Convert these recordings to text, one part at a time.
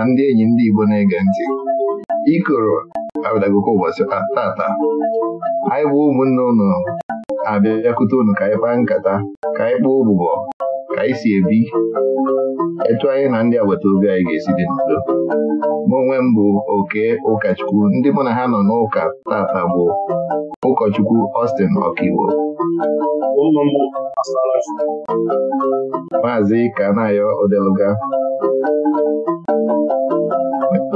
na ndị enyi ndị Igbo na-ege ntị ikoro abịadagoko ụbọchị tata anyị bụ ụmụnne ụnụ abịabịakute ụnụ ka anyị kpaa nkata ka anyị kpaa ụbụbọ ka anyị si ebi etu anyị na ndị agbata obi anyị ga-esi dị n'udo mụ onwe m bụ oke ụkọchukwu ndị mụ na ha nọ n'ụka tata bụ ụkọchukwu Austin Ọkaiwo maazị Kanayo Odeluga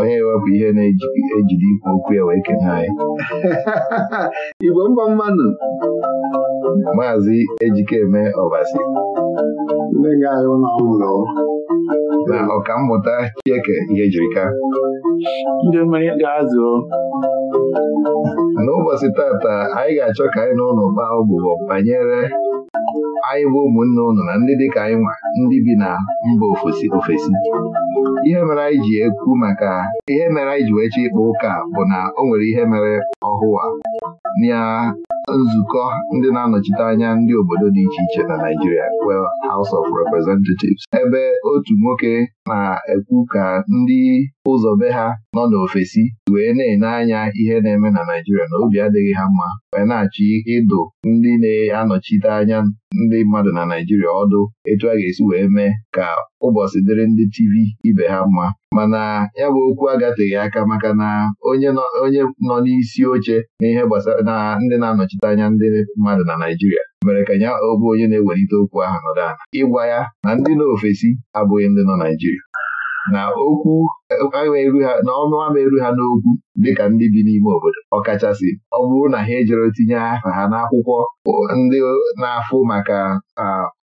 onye ewepụ ihe na-ejide ikwu okwu ya wee kene anyị Igbo mba mmanụ Maazị Ejikeme Ọbasi na ọkammụta Chieke ihe jirika n'ụbọchị tata anyị ga-achọ ka anyị na ụlọ kpaa ọbụbọ banyere anyị bụ ụmụnne ụnụ na ndị dịka anyị nwa ndị bi na mba ofesi ofesi ihe mere anyị ji ekwu maka ihe mere anyị ji weche ịkpa ụka bụ na o nwere ihe mere ọhụụ na nzukọ ndị na-anọchite anya ndị obodo dị iche iche na Naijiria. well House of Representatives ebe otu nwoke na-ekwu ka ndị ụzọ ha nọ n'ofesi wee na-enye anya ihe na-eme na Naijiria na obi adịghị ha mma wee na-achị ịdụ ndị na-anọchite anya ndị mmadụ na Naijiria ọdụ etu a ga-esi wee mee ka ụbọchị dịrị ndị TV ibe ha mma mana ya bụ okwu agateghị aka maka na onye nọ n'isi oche na ihe gbasara na ndị na-anọchite anya ndị mmadụ na Naijiria mere ka ya ọbụ onye na-ewelite okwu ahụ nọdụ ala ịgwa ya na ndị nọ ofesi abụghị ndị nọ Naijiria, na okwu na ọnụ ama eru ha n'okwu dịka ndị bi n'ime obodo ọkachasị ọ bụrụ na ha ejere tinye aha ha n'akwụkwọ ndị na-afụ maka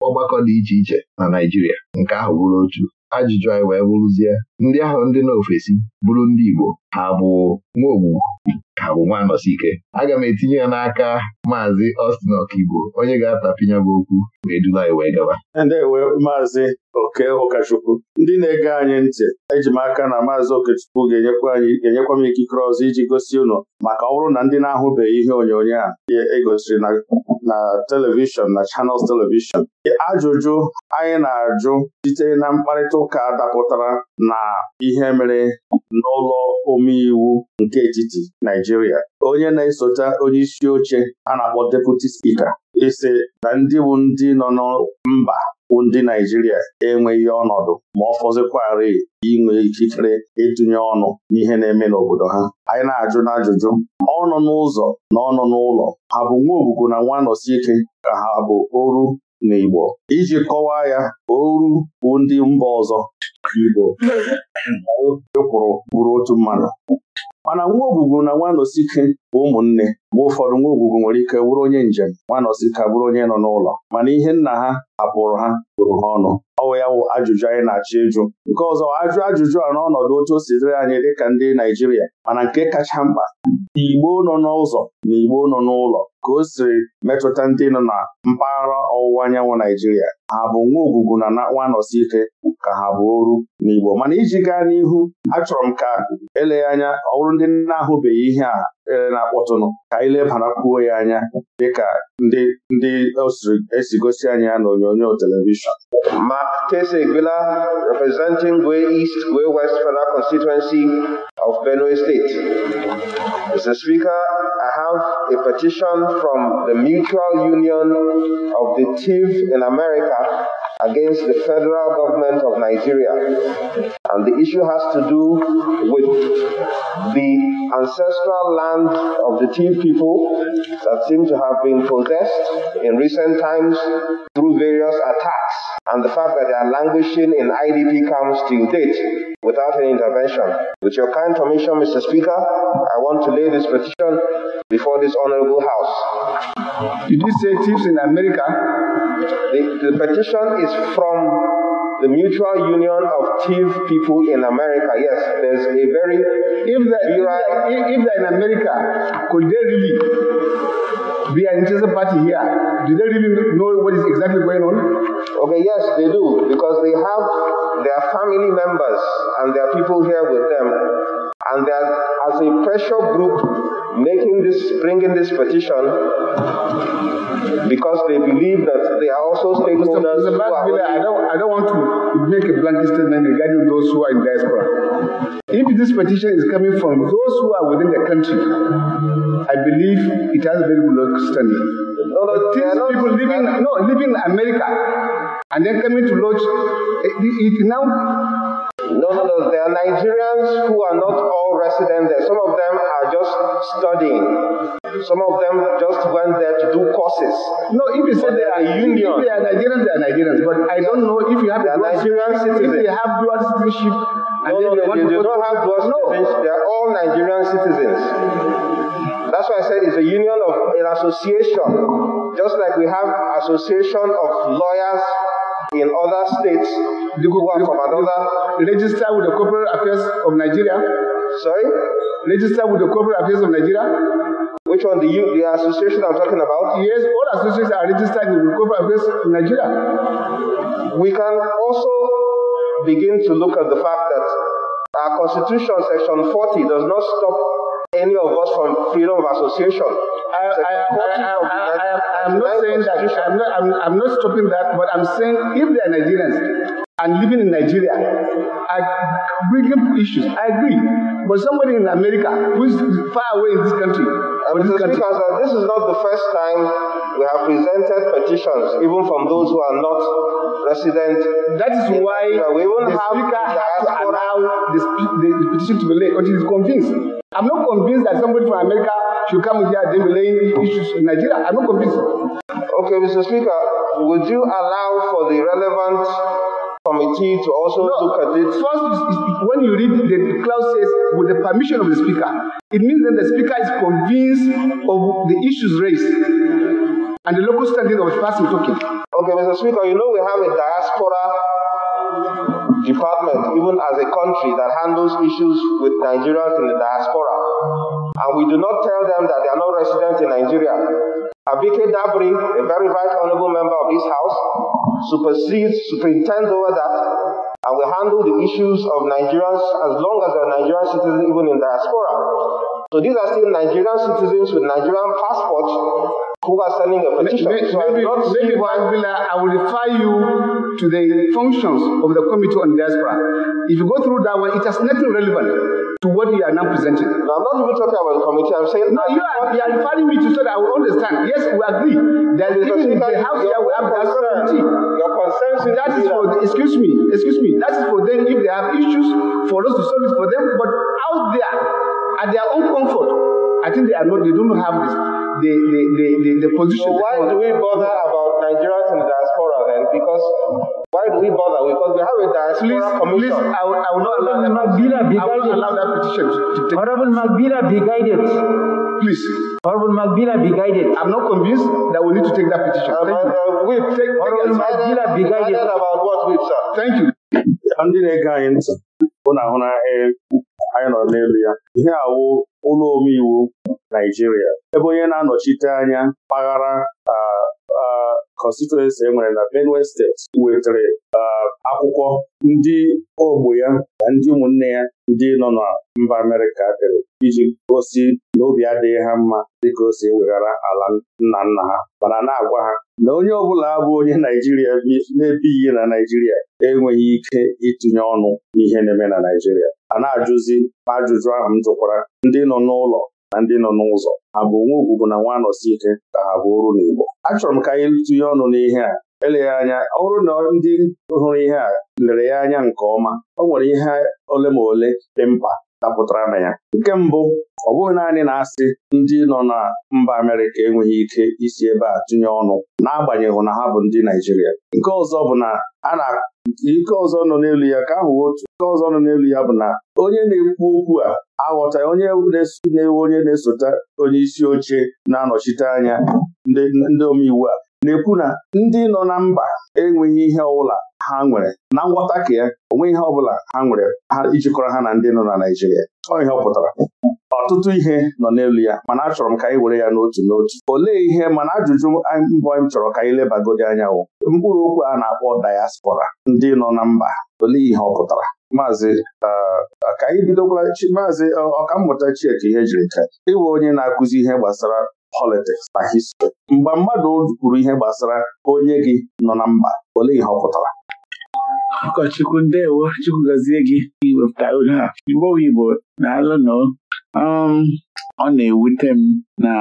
ọgbakọ dị iche iche na Naịjirịa nke ahụ bụrụ otu ajụjụ anyị wee bụrụzie ndị ahụ ndị n'ofesi bụrụ ndị Igbo ha bụ nwaogbu ha bụ nwa nọsike aga m etinye ya n'aka maazị Austin Ọkaigbo onye ga-atapịnya bụ okwu wee dula anyị wee gaba ndewe maazị oke ụkọchukwu ndị na-ege anyị ntị eji m aka na maazị okechukwu ga-enyekwa ga-enyekwa m ikikere ọzọ iji gosi ụnọ maka ọ na ndị na-ahụbeghị ihe onyonyo a egosiri e na telivishọn na chanels telivishọn ajụjụ anyị na-ajụ site na mkparịta ụka dapụtara na ihe mere n'ụlọ omeiwu nke etiti Naijiria onye na-esote onye isi oche a na-akpọ deputi spika Ise e na ndị bụ ndị nọ mba bụ ndị Naijiria enweghị ọnọdụ ma ọ fọzikwarị inwe ikikere ịtụnye ọnụ n'ihe na-eme n'obodo ha anyị na-ajụ n'ajụjụ ọnụ n'ụzọ na ọnụ n'ụlọ ha bụ nwa ogbugwu na nwa nọsi ike ka ha bụ oru n'Igbo iji kọwaa ya oru bụ ndị mba ọzọ Igbo ịkwụrụ e bụrụ otu mmadụ mana nwa ogbugbu na nwa nosike bụ ụmụnne mgbe ụfọdụ nwa ogbugbu nwere ike bụrụ onye njem nwa nosike bụrụ onye nọ n'ụlọ mana ihe nna ha hapụrụ ha bụrụ ha ọnụ ọwụ ya wụ ajụjụ anyị na-achọ ịjụ nke ọzọ ajụ ajụjụ a n'ọnọdụ otu o si dịrị anyị dịka ndị Naijiria mana nke kacha mkpa Igbo nọ n'ụzọ na Igbo nọ n'ụlọ ka o siri metụta ndị nọ na mpaghara ọwụwa anyanwụ Naijiria ha bụ nwa ogbugbu bụ na nakpụ anọsi ike ka ha bụ oru n'Igbo mana iji gaa n'ihu achọrọ m ka eleghị anya ọ bụrụ ndị na-ahụbeghị ihe a ere na-akpọtụnụ ka anyị lebarakwuo ya anya dịka ndị ndị esi gosi anyị ya onyonyo telivishọn Mark Kesegbela representing Gwe East Gwe West Federal Constituency of Benue State Mr. Speaker, I have a petition from the Mutual Union of the TIV in America against the federal government of Nigeria. And the issue has to do with the ancestral land of the Tiv people that seem to have been possessed in recent times through various attacks and the fact that they are languishing in IDP camps till date without any intervention. With your kind permission, Mr. Speaker, I want to lay this petition before this honorable house. Did you say thieves in America? The, the petition is from the Mutual Union of Thief People in America. Yes, there's a very. If they're, if if they're in America, could they really be an interested party here? Do they really know what is exactly going on? Okay, yes, they do, because they have their family members and their people here with them. And as a pressure group, making this, bringing this petition because they believe that they are also stakeholders. Mr. Mr. I don't, I don't want to make a blanket statement regarding those who are in diaspora. If this petition is coming from those who are within the country, I believe it has very low standing. No, no, these people living, no, living in America and then coming to lodge, it, it now No, There are Nigerians who are not all residents there. Some of them are just studying. Some of them just went there to do courses. No, if you say they are union. If they are Nigerians, they are Nigerians. But I don't know if you have a Nigerian citizen, If they have dual citizenship. No, no, they, they, they don't have dual citizenship. No. They are all Nigerian citizens. That's why I said it's a union of an association. Just like we have association of lawyers in other states, the one from another, register with the Corporate Affairs of Nigeria. Sorry? Register with the Corporate Affairs of Nigeria. Which one? The, U, the association I'm talking about? Yes, all associations are registered with the Corporate Affairs of Nigeria. We can also begin to look at the fact that our Constitution, Section 40, does not stop any of us from freedom of association. I, I, I, am not saying that, I'm not, not stopping that, but I'm saying if they are Nigerians and living in Nigeria, I bring issues, I agree. But somebody in America who is far away in this country, um, this, country. Speaker, this is not the first time we have presented petitions, even from those who are not resident. That is why we the have speaker has to allow the, the, petition to be laid until he's convinced. I'm not convinced that somebody from America should come here delaying issues in Nigeria. I'm not convinced. Okay, Mr. Speaker, would you allow for the relevant committee to also no, look at it? First, when you read the clause says, with the permission of the speaker, it means that the speaker is convinced of the issues raised and the local standing of the person talking. Okay, Mr. Speaker, you know we have a diaspora department, even as a country that handles issues with Nigerians in the diaspora. And we do not tell them that they are not residents in Nigeria. Abike Dabri, a very right honorable member of this house, supersedes, superintends over that, and we handle the issues of Nigerians as long as they are Nigerian citizens even in diaspora. So these are still Nigerian citizens with Nigerian passports who are sending a petition. Maybe, so maybe, maybe I will refer you to the functions of the Committee on Diaspora. If you go through that one, it has nothing relevant to what you are now presenting. No, I'm not even talking about the committee. I'm saying... No, you are, you are referring me to so that I will understand. Yes, we agree. That is even the house here, we have Diaspora Committee. Your consent. That is for... The, excuse me. Excuse me. That is for them if they have issues, for us to solve it for them. But out there, at their own comfort, I think they are not, they don't have this, the, the, the, the, the position. So why do we bother about Nigerians in the diaspora then? Because why do we bother? Because we have a diaspora please, commission. Please, I will, I will not allow that. petition I will not allow that petition to, take. Honorable Magbila, be guided. Please. Honorable Magbila, be guided. I'm not convinced that we need to take that petition. Uh, Thank uh, you. We've take, Honorable Magbila, be uh, guided. about what we've sir. Thank you. Ndị na-ege anyị ntị, hụ na ahụ na anyị nọ n'elu ya ihe awụ ụlọ omeiwu Naijiria ebe onye na-anọchite anya mpaghara kọnstituensi e nwere na Benue steeti wetere uh, akwụkwọ ndị ogbo ya na ndị ụmụnne ya ndị nọ na mba Amerịka dere iji gosi n'obi adịghị ha mma dịka o si weghara ala nna nna ha mana na-agwa ha na onye ọbụla bụ onye Naijiria na-ebighị na Naijiria enweghị ike itinye ọnụ ihe na-eme na Naijiria a na-ajụzi ajụjụ ahụ m jụkwara ndị nọ n'ụlọ na ndị nọ n'ụzọ ha bụ onwe ugwu bụ na nwa anọsi ike ka ha bụ ọrụ n'Igbo achọrọ m ka anyị tụnye ọnụ n'ihe a eleghị anya ọ na ndị hụrụ ihe a lere ya anya nke ọma ọ nwere ihe ole ma ole dị mkpa dapụtara na ya nke mbụ ọ bụghị naanị na-asị ndị nọ na mba Amerịka enweghị ike isi ebe a tụnye ọnụ n'agbanyeghị na ha bụ ndị Naijiria nke ọzọ bụ na a na ike ọzọ nọ n'elu ya ka ahụ otu ike ọzọ nọ n'elu ya bụ na onye na-ekwu okwu a aghọtaghị onye na-ewe onye na-esote onye isi oche na-anọchite anya ndị omeiwu a na-ekwu na ndị nọ na mba enweghị ihe ọbụla ha nwere na ngwọta ka ya onwe ihe ọbụla ha nwere ha ijikọrọ ha na ndị nọ na Naịjirịa ọ ihe ọ pụtara ọtụtụ ihe nọ n'elu ya mana achọrọ m ka anyị were ya n'otu n'otu olee ihe mana ajụjụ mbọ m chọrọ ka anyị lebagodi anya wụ mkpụrụ okwu a na-akpọ dayaspora ndị nọ na mba olee ihe ọ pụtara maazị uh, ka anyị bidokwara maazị uh, ọkammụta Chieke ihe jiri ka ịwụ onye na-akụzi ihe gbasara politics na history mgbe mmadụ kwuru ihe gbasara onye gị nọ na mba olee ihe ọ pụtara ụkọchukwu ndewo chukwu gazie gị iwepụta oge a mgbe Igbo na alụnụ um, ọ na-ewute m na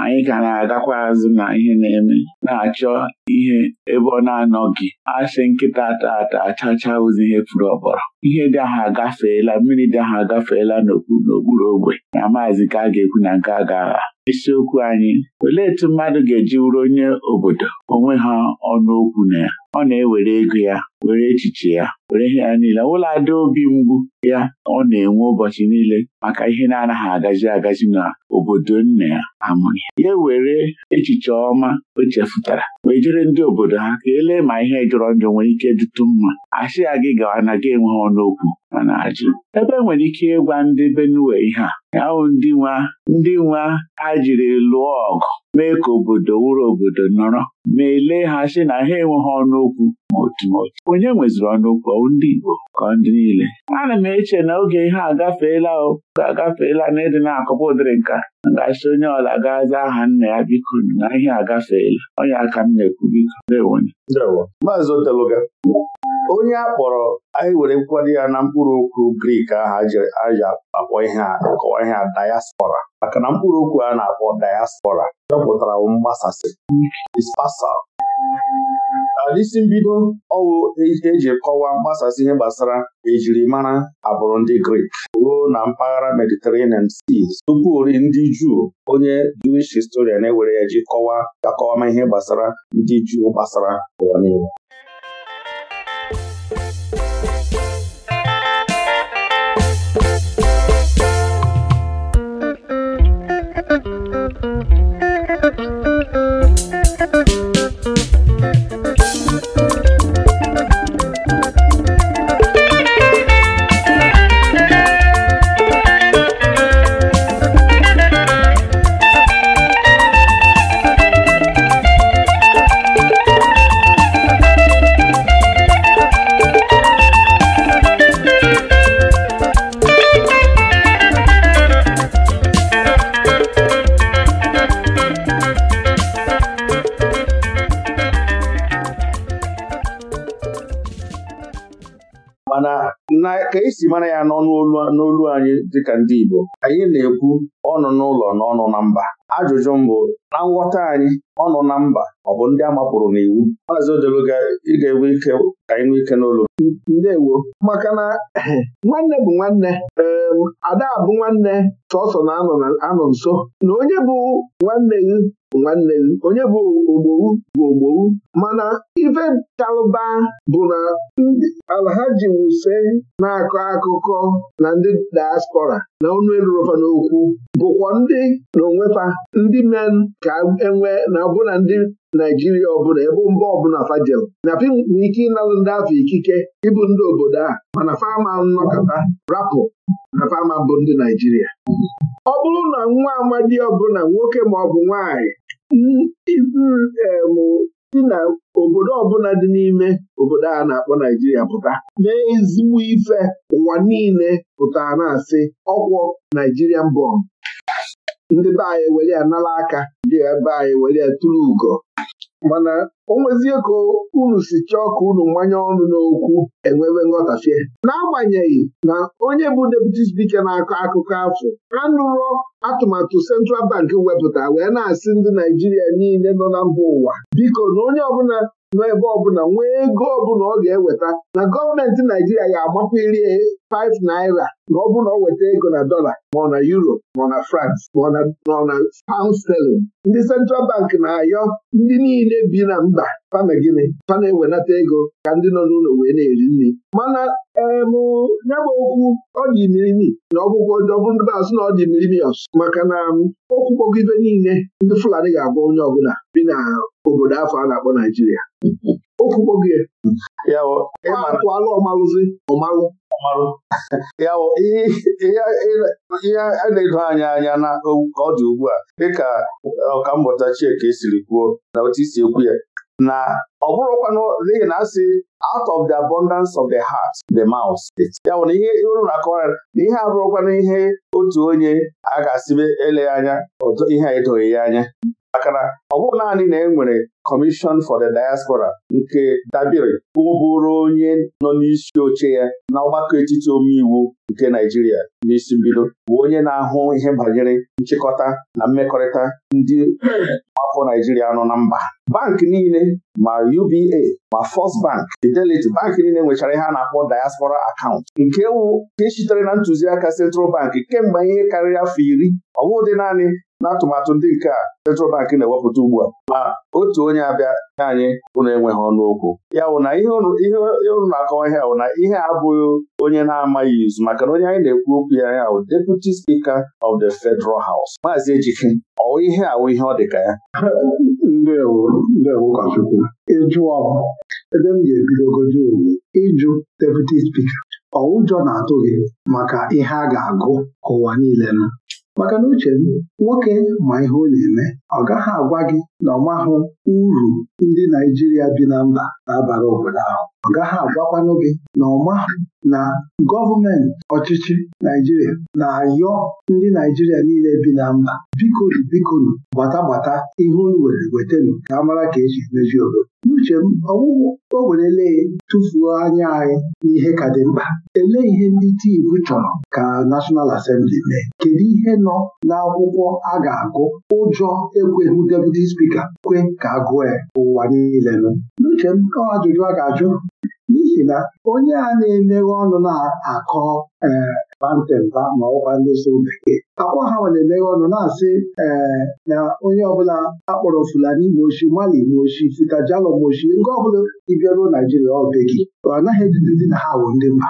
anyị ka na-agakwa azụ na ihe na-eme na-achọ ihe ebe ọ na-anọghị asị nkịta ata achacha ozi ihe furu ọbọrọ ihe dị ahụ agafeela mmiri dị ahụ agafeela n'okpuru ogbe na maazị ka a ga-ekwu na nke a ga-agha isiokwu anyị olee etu mmadụ ga-eji wuru onye obodo onwe ha ọnụ okwu na ya ọ na-ewere ego ya were echiche ya were ihe ya niile ụlọ ada obi mgbu ya ọ na-enwe ụbọchị niile maka ihe na-anaghị agazi agazi na obodo nna ya amụghị ya were echiche ọma o chefutara wee jere ndị obodo ha ka elee ma ihe jọrọ njọ nwere ike dịtụ mma a ya gị gawa na gị enweghị ọnụ okwu ma na-ajụ ebe enwere ike ịgwa ndị Benue ihe a ahụ ndị nwa ndị nwa ha jiri lụọ ọgụ mee ka obodo wụrụ obodo nọrọ ma ele ha si na ha enweghị ọnụokwu ma otu ma otu onye nweziri ọnụ okwu ndị Igbo ka ndị niile ana m eche na oge ihe agafeela o agafeela na na-akọpa ụdịrị nka gasị onye ọla gaza aha nna ya biko na ihe agafeela onye aka m na-ekwu biko na-enwenye Maazị Oteloga onye a kpọrọ anyị were nkwado ya na mkpụrụ okwu Grik ahụ aja akpọ ihe akọwa ihe a diaspora maka na mkpụrụ okwu a na-akpọ diaspora chọpụtara mgbasasị dispasal alisi uh, mbido ọwụ eji kọwaa mgbasasị ihe gbasara ejirimara abụrụ ndị Grik ruo na mpaghara Mediterranean Seas tupu ndị Juu onye Jewish historian ewere ya ji kọwaa akọwama ihe gbasara ndị Juu gbasara ụwa niile isi mara ya n'olu anyị dịka ndị Igbo anyị na-ekwu ọnụ n'ụlọ na ọnụ na mba ajụjụ mbụ na nghọta anyị nọ na mba ọ bụ ndị a mapụrụ n'iwu maazị Odeluga ị ga-enwe ike ka anyị nwee ike n'olu ndewo maka na nwanne bụ nwanne ada bụ nwanne sọsọ na-anọ nso na onye bụ nwanne gị bụ nwanne gị onye bụ ogbowu bụ ogbowu mana ife chalụba bụ na alhaji wuse na-akọ akụkọ na ndị diaspora na ọnụ elurọfa n'okwu bụkwa ndị na onwefa ndị men ka enwee na ọbụna ndị Naijiria ọbụla ebe mba ọbụla fajel na pim nwere ike ịnalụ ndị afọ ikike ịbụ ndị obodo a mana fama nnọkọta rapụ na fama bụ ndị Naijiria ọ bụrụ na nwa amadi ọbụla nwoke ma ọ bụ nwanyị si na obodo ọbụla dị n'ime obodo a na-akpọ Naijiria pụta mee ezigbo ife ụwa niile pụta na-asị ọkwọ Naijirian bọmbụ ndị be anyị were ya nala aka ndị ebe anyị were ya tụrụ ugo mana o nwezie ka unu si chọọ ka unu mmanye ọnụ n'okwu enwewe nghọtafie n'agbanyeghị na onye bụ deputy speaker na-akọ akụkọ afọ anụrụ atụmatụ Central Bank wepụta wee na-asị ndị Naijiria niile nọ na mba ụwa biko na onye ọbụla nọ ebe ọbụla nwee ego ọbụla ọ ga-eweta na gọọmenti Naijiria ga iri 5 naira na ọ bụrụ na ọ weta ego na dola ma ọ na euro ma ọ na France ma ọ na pound sterling ndị Central Bank na-ayọ ndị niile bi na mba fana gịnị ewenata ego ka ndị nọ n'ụlọ wee na-eri nri mana emụ bụ okwu ọ dị na ọgwụgwọ ndị na ọ dị maka na um, okwu kpọgibe niile ndị Fulani ga-abụ onye ọbụla bi na obodo afọ a na-akpọ Naijiria okwu kpọgie ọmalụzi ọmalụ ya ihe a na-edo anya anya na ọ dị ugbu a dịka ọkammụta Chieke siri kwuo na otu isi ekwu ya na ọ bụrụkwanụ n'ihi na asị out of the abundance of the heart the mouth ya bụ na ihe uru na na ihe abụrụkwanụ ihe otu onye a ga-asịbe eleghị anya ihe edoghị ya anya akara na ọ bụghị naanị na e nwere Commission for the Diaspora nke dabere ụbụrụ onye nọ n'isi oche ya na ọgbakọ etiti omeiwu nke naijiria n'isi mbido bụ onye na-ahụ ihe banyere nchịkọta na mmekọrịta ndị afọ Naịjirịa nọ na mba bank niile ma UBA ma First Bank Fidelity bank niile nwechara ihe a na-akpọ diaspora akaụntụ nke wụ nke sitere na ntụziaka Central Bank kemgbe ihe karịrị afọ iri ọ bụghị naanị n'atụmatụ ndị nke a Central Bank na-ewepụta ugbu a ma otu onye abịa nye anyị ụnụ enweghị ọnụ okwu ya wụ na ihe ụnụ na-akọwa ihe bụ na ihe a abụghị onye na-amaghị izu maka na onye anyị na-ekwu okwu ya ya wụ Deputy Speaker of the Federal House Maazị Ejike ọ ihe awụ ihe ọ dị ka ya ịjụ ọwụjọ na-atụ maka ihe a ga-agụ ka ụwa niile nụ maka na uche nwoke ma ihe ọ na-eme ọ gaghị agwa gị na ọ mahụ uru ndị Naijiria bi na mba na-abara obodo ahụ ọ gaghị agwakwanụ gị na ọ mahụ na gọọmenti ọchịchị Naijiria na-ayọ ndị Naijiria niile bi na mba bikonu bikonu gbata gbata ihe unu were wetanu ka a mara ka eji meji obodo n'uche m ọwụwụ o werele tụfuo anya anyị n'ihe ka dị mkpa elee ihe ndị tiivu chọrọ ka National Assembly Asembli mee kedu ihe nọ n'akwụkwọ a ga-agụ ụjọ ekweghị deputi spika kwe ka a gụọ ya ụwa niile nụ n'uche m ọ ajụjụ a ga-ajụ n'ihi na onye a na-emeghe ọnụ na-akọ ee bantemba ma ọkwa ndị so bekee akwa ha nwere emeghe ọnụ na-asị ee na onye ọbụla akpọrọ Fulani ma oshi Mali ma Fita Futajalo ma nke ọbụla ịbịa ruo Naijiria ọ be ọ anaghị edidezi na ha bụ ndị mba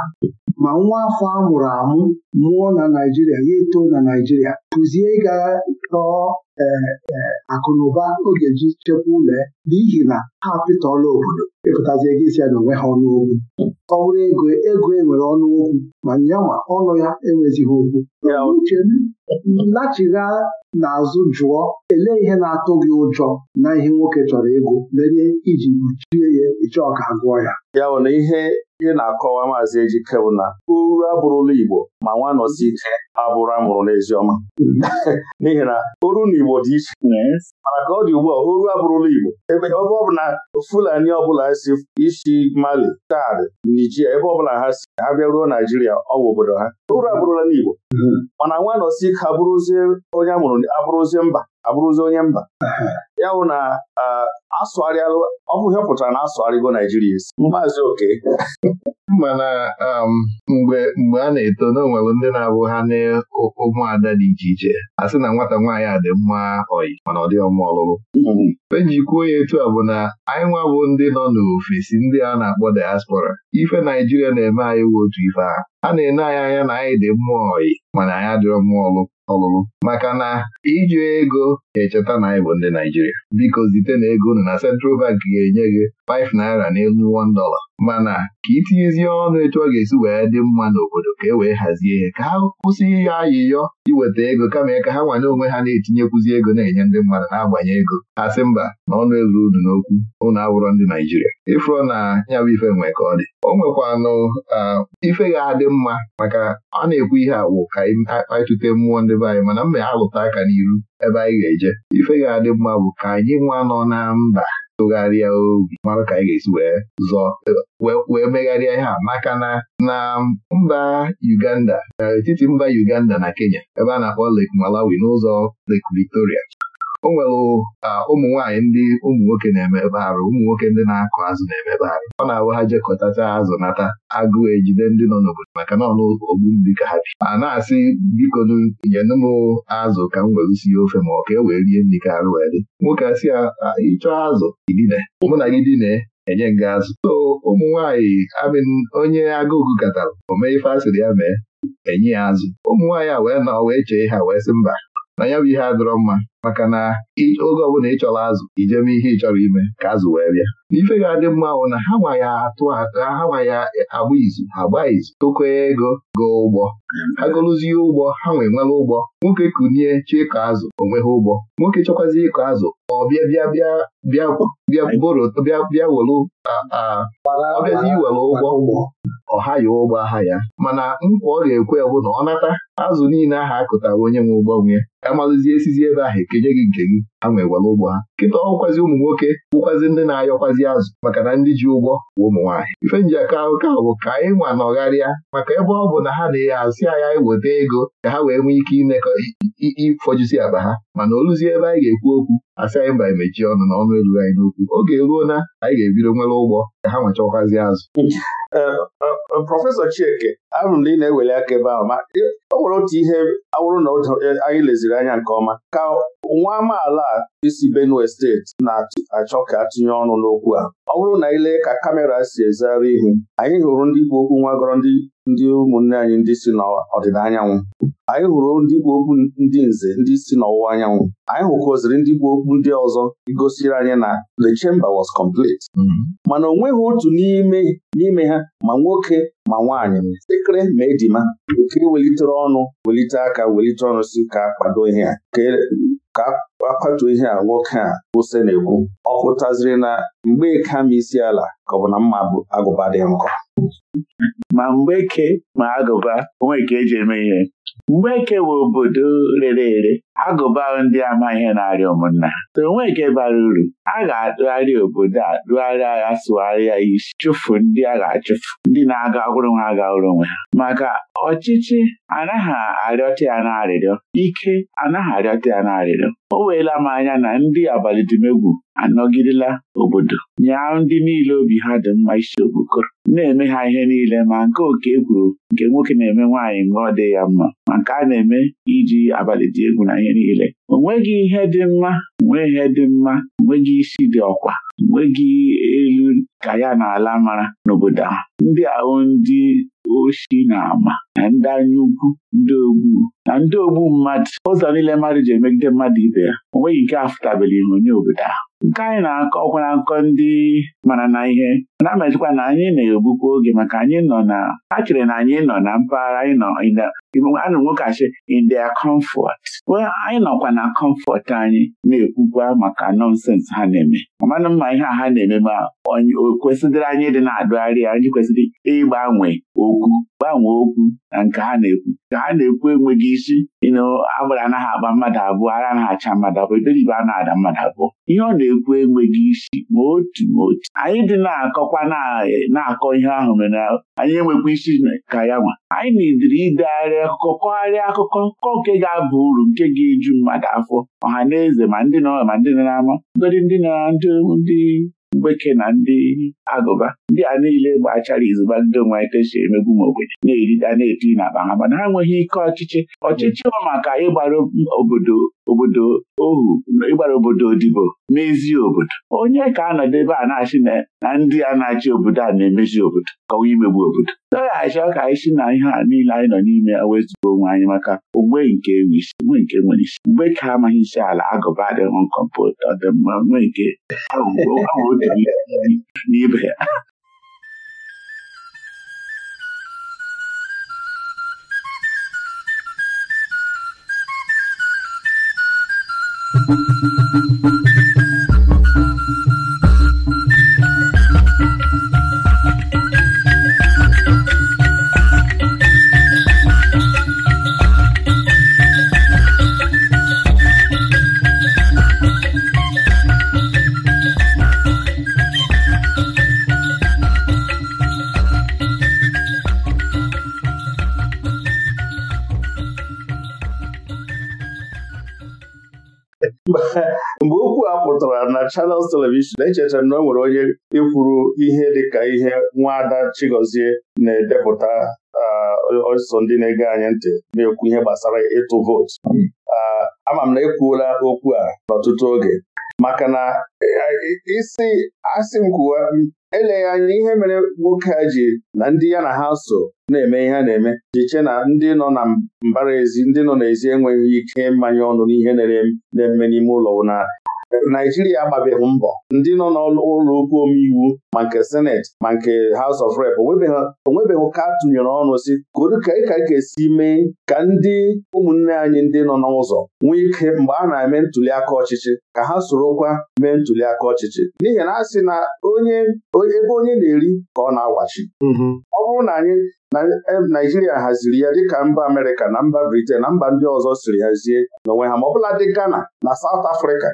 ma nwa afọ a mụrụ amụ mụọ na Naijiria ya eto na Naijiria kụzie ịga tọọ e, e, akụ na oge ji chekwa ụlọ n'ihi na ha pịtọla obodo ịpụtazi ego isi ya na onwe ha ọnụ okwu ọ bụrụ ego ego enwere ọnụ okwu ma nyanwa ọnụ ya enwezighị okwu lachigha n'azụ jụọ elee ihe na-atụ gị ụjọ na ihe nwoke chọrọ ego mere iji kpuchie ya ịchọ ka agụọ ya ya bụ na ihe ị na-akọwa maazị Ejike bụ na uru abụrụla Igbo ma nwa nọsi ike abụrụ amụrụ n'eziọma n'ihi na uru na Igbo dị iche mana ka ọ dị ugbu a uru abụrụla Igbo ebe ebe ọ bụ na Fulani ọbụla si isi Mali Chad Nigeria ebe ọbụla ha si ha bịaruo Naijiria ọwụ obodo ha uru abụrụla n'Igbo hmm. mana nwa nọsi ike abụrụzie onye amụrụ abụrụzie mba abụrụzi onye mba ya bụ na asụgharịalụ ọ bụ ọ pụtara na asụgharịgo Naijiria isi maazị oke mana um, mgbe mgbe a na-eto n'onwere ndị na-abụ ha n'ụmụada dị iche iche a sị na nwata nwaanyị a dị mma ọyị mana ọ dị ọma ọlụlụ hmm. eji kwuo ya etu a bụ na anyị nwa bụ ndị nọ n'ofesi ndị a na-akpọ diaspora ife Naijiria na-eme anyị we otu ife ahụ a na-ene anyị anya na anyị dị mma ọyị mana anyị adịrọ mma ọlụ ọlụlụ maka na iji ego ga echeta na anyị bụ ndị Naijiria biko zite na ego nọ na Central Bank ga-enye gị 5 naira n'elu 1 dollar mana ka itinyezie ọnụ etu ọ ga-esi wee dị mma n'obodo ka e wee hazie ihe ka ha kwụsị ya ayịyọ iweta ego kama ka ha nwanye onwe ha na-etinyekwuzi ego na-enye ndị mmadụ na-agbanye ego ha sị mba na ọnụ ezuru unu n'okwu ụnụ awụrọ ndị Naijiria ịfụrọ na ya bụ ife nwe ka ọ dị o nwekwanụ ife ga-adị mma maka ọ na-ekwu ihe awụ ka anyị mmụọ ndị be anyị mana mma ya alụta aka n'iru ebe anyị ga-eje ife ga-adị mma bụ ka anyị nwa nọ na mba tụgharịa obi mara ka anyị ga-esi wee zọọ wee megharịa ihe a maka na na mba Uganda etiti mba Uganda na Kenya ebe a na-akpọ Lake Malawi n'ụzọ Lake Victoria o nwere ụmụ nwaanyị ndị ụmụ nwoke na-emebe arụ ụmụ nwoke ndị na-akụ azụ na-emebe arụ ọ na-awụ ha jekọtacha azụ nata agụụ ejide ndị nọ n'obodo maka na ọnụ ogbu mmiri ka ha bi a na-asị biko nyenụ m azụ ka m were sie ofe ma ọ ka e wee rie nri ka arụ wee dị nwoke asị ịchọọ azụ idine mụ na gị dine enye nga azụ so ụmụ nwaanyị amin onye agụụ katara o mee ife asịrị ya mee enye ya azụ ụmụ nwaanyị a wee nọ wee chee ha wee sị mba na ya bụ ihe adịrọ mma maka na oge ọbụla ị chọrọ azụ ijeme ihe ị chọrọ ime ka azụ wee bịa n'ife ga-adị mma bụ na ha ma ya atụ ha ma ya agba izu agba izu tụkwee ego goo ụgbọ ha gụrụzie ụgbọ ha nwee nwere ụgbọ nwoke kunie chi ịkọ azụ onwe ha ụgbọ nwoke chọkwazi ịkọ azụ ọ bịa bịa bịa bịa bịa bịa bịa were ọbịazi iwere ụgbọ ọha ya ụgbọ aha ya mana nkwa ọ ga-ekwe bụ na ọ nata azụ niile aha akụtara onye nwe ụgbọ nwe ya amalụzie esizi ebe ahụ eke nke nye gị nke gị ha nwee ụgbọ ha nkịta ọkwazị ụmụ nwoke bụkwazi ndị na-ayọkwazi azụ maka na ndị ji ụgwọ bụ ụmụ nwaanyị ife nji aka ahụka bụ ka anyị nwa nọgharịa maka ebe ọ bụ na ha na-asị anya iweta ego ka ha wee nwee ike imekọ ịfọjisi akpa ha mana oluzie ebe anyị ga-ekwu okwu asị anyị mba emechie ọnụ na ọnụ anyị n'okwu oge eruo na anyị ga-ebido nwere ụgbọ ka ha nwechakwazi azụ eh, eh, eh, Prọfesọ Chieke ahụrụ na ị na-eweli aka ebe ahụ ma o nwere otu ihe awụrụ na e, anyị leziri anya nke ọma ka nwa amaala isi Benue steeti na-achọ ka atụnye ọnụ n'okwu a ọ bụrụ na ile lee ka kamera si ezigharị ihu anyị hụrụ ndị ikwu okwu nwa gọrọ ndị ụmụnne anyị ndị si n'ọdịda anyanwụ anyị hụrụ ndị ikwu okwu ndị nze ndị si n'ọwụwa anyanwụ anyị hụkọziri ndị ikwu okwu ndị ọzọ gosiri anyị na the chamber was complete mm-hmm. mana o nweghị otu n'ime n'ime ha ma nwoke ma nwaanyị sekere ma ejima okiri welitere ọnụ welite aka welite ọnụ si ka kwado ihe a ka e, ihe a nwoke a kwụsị na-ekwu ọ pụtaziri na mgbe e kama isi ala ka ọ bụ na mma agụba dị nkọ ma mgbe ke ma agụba onwe ka eji eme ihe mgbe eke bụ obodo rere ere agụba ndị amaghị na-arịa ụmụnna na onweke bara uru a ga-atụgharị obodo a dụgharị rụgharịa ya isi chụfu ndị a ga-achụfu ndị na-aga ọhụrụ nwa aga ọhụrụ onwe ha maka ọchịchị anaghị arịọta ya na arịrịọ ike anaghị arịọta ya na arịrịọ o weela m anya na ndị abalị dịmegwu anọgidela obodo nya ndị niile obi ha dị mma isi okpokoro na-eme ha ihe niile ma nke oke kwuru nke nwoke na-eme nwaanyị mgbe ọ dị ya mma ma nke a na-eme iji abalị dị egwu na ihe niile o nweghị ihe dị mma nwee ihe dị mma nweghị isi dị ọkwa nweghị elu ka ya na ala mara n'obodo a. ndị ahụ ndị oshi na ama na ndị anya ukwu ndị ogbu na ndị ogbu mmadụ ụzọ niile mmadụ ji emegide mmadụ ibe ya o nweghị nke afụtabela onye obodo ahụ nke anyị na-akọ ọkwa na-akọ ndị mara na ihe na-amazikwa na anyị na-egbukwa oge maka anyị nọ na ha chere na anyị nọ na mpaghara anyị nọ anụ nwoke nwokasị in their comfort anyị nọkwa na kọmfọt anyị na-ekwukwa maka nọnsens ha na-eme amanụ mma ihe a ha na-eme ma onye o kwesịrị anyị dị na-adụgharị anyị kwesịrị ịgbanwe okwu gbanwee okwu na nke ha na-ekwu ka ha na-ekwu enweghị isi ịnụ agbara anaghị agba mmadụ abụọ ara anaghị acha mmadụ abụọ iberibe a na-ada mmadụ abụọ ihe ọ na-ekwu enweghị isi ma otu ma otu anyị dị na-akọkwa na-akọ ihe ahụ mere anyị enwekwa isi ka ya nwa anyị na akụkọ kọgharịa akụkọ kọ nke ga-aba uru nke ga-eju mmadụ afọ ọha na eze ma ndị nọ ma ndị nọ n'ama ngọdị ndị na ndị mgbeke na ndị agụba ndị a niile gbachara izuba ndị onwe anyị emegbu m ogbenye na-erida na-eti na akpa ha mana ha enweghị ike ọchịchị ọchịchị bụ maka ịgbara obodo obodo ohu ịgbara obodo odibo mezi obodo onye ka anọdụ ebe a na-achị na ndị a na-achị obodo a na-emezi obodo kọwa imegbu obodo dọghachi ọka anyị si na ihe a niile anyị nọ n'ime wezugo onwe anyị maka ogbe nke isi nwe nke nwere isi mgbe ka amaghị isi ala agụba adịghị nkọmpụta ọdịmma nwe nke ya a aa aaa mgbe okwu a pụtara na Channels telivishọn echechara na o nwere onye ikwuru ihe dịka ihe nwaada Chigozie na-edepụta ọsọ ndị na-ege anyị ntị na-ekwu ihe gbasara ịtụ vootu ama m na ekwuola okwu a n'ọtụtụ oge maka na eh, eh, isi asị m kwuwa eleghị anya ihe mere nwoke a ji na ndị ya na ha so na-eme ihe a na-eme jiche na ndị nọ na mbara ezi ndị nọ n'ezi enweghị ike mmanye ọnụ n'ihe na-eme n'ime ụlọ na Naijiria agbabeghị mbọ ndị nọ n'ụlọ okwu omeiwu ma nke Senate ma nke House of Rep onwebeghị ụka tụnyere ọnụ si kodu ka ka ga-esi mee ka ndị ụmụnne anyị ndị nọ n'ụzọ nwee ike mgbe a na-eme ntuli aka ọchịchị ka ha sorokwa mee ntuli aka ọchịchị n'ihi na a sị na onye ebe onye na-eri ka ọ na-agwachi mhm. ọ bụrụ anyị naijiria haziri ya dịka mba amerịka na mba briten na mba ndị ọzọ siri hazie n'onwe ha ma bụla dị ghana na South Africa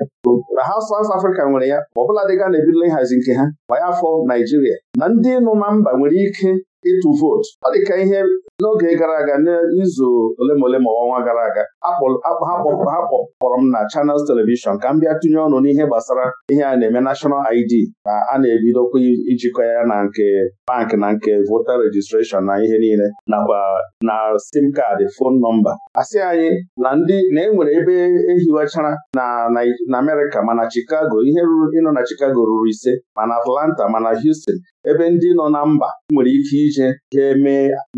na ha South Africa nwere ya ma ọ bụla dị ghana ebidola ịhazi nke ha ma ya afọ naijiria na ndị n'ụma mba nwere ike ịtụ vootu ọ dị ka ihe n'oge gara aga n'izu ole ma ole ma ọnwa gara aga ha kpọkpọrọ m na Channels Televishọn ka m bịa tụnye ọnụ n'ihe gbasara ihe a na-eme National ID ka a na-ebidokwa ijikọ ya na nke bank na nke voter registration na ihe niile nakwa na sim kaadị fon nọmba asị anyị na ndị na-enwere ebe ehiwechara na Amerịka mana Chicago ihe nọ ịnọ na Chicago ruru ise mana Atlanta mana Houston ebe ndị nọ na mba nwere ike iji ije jee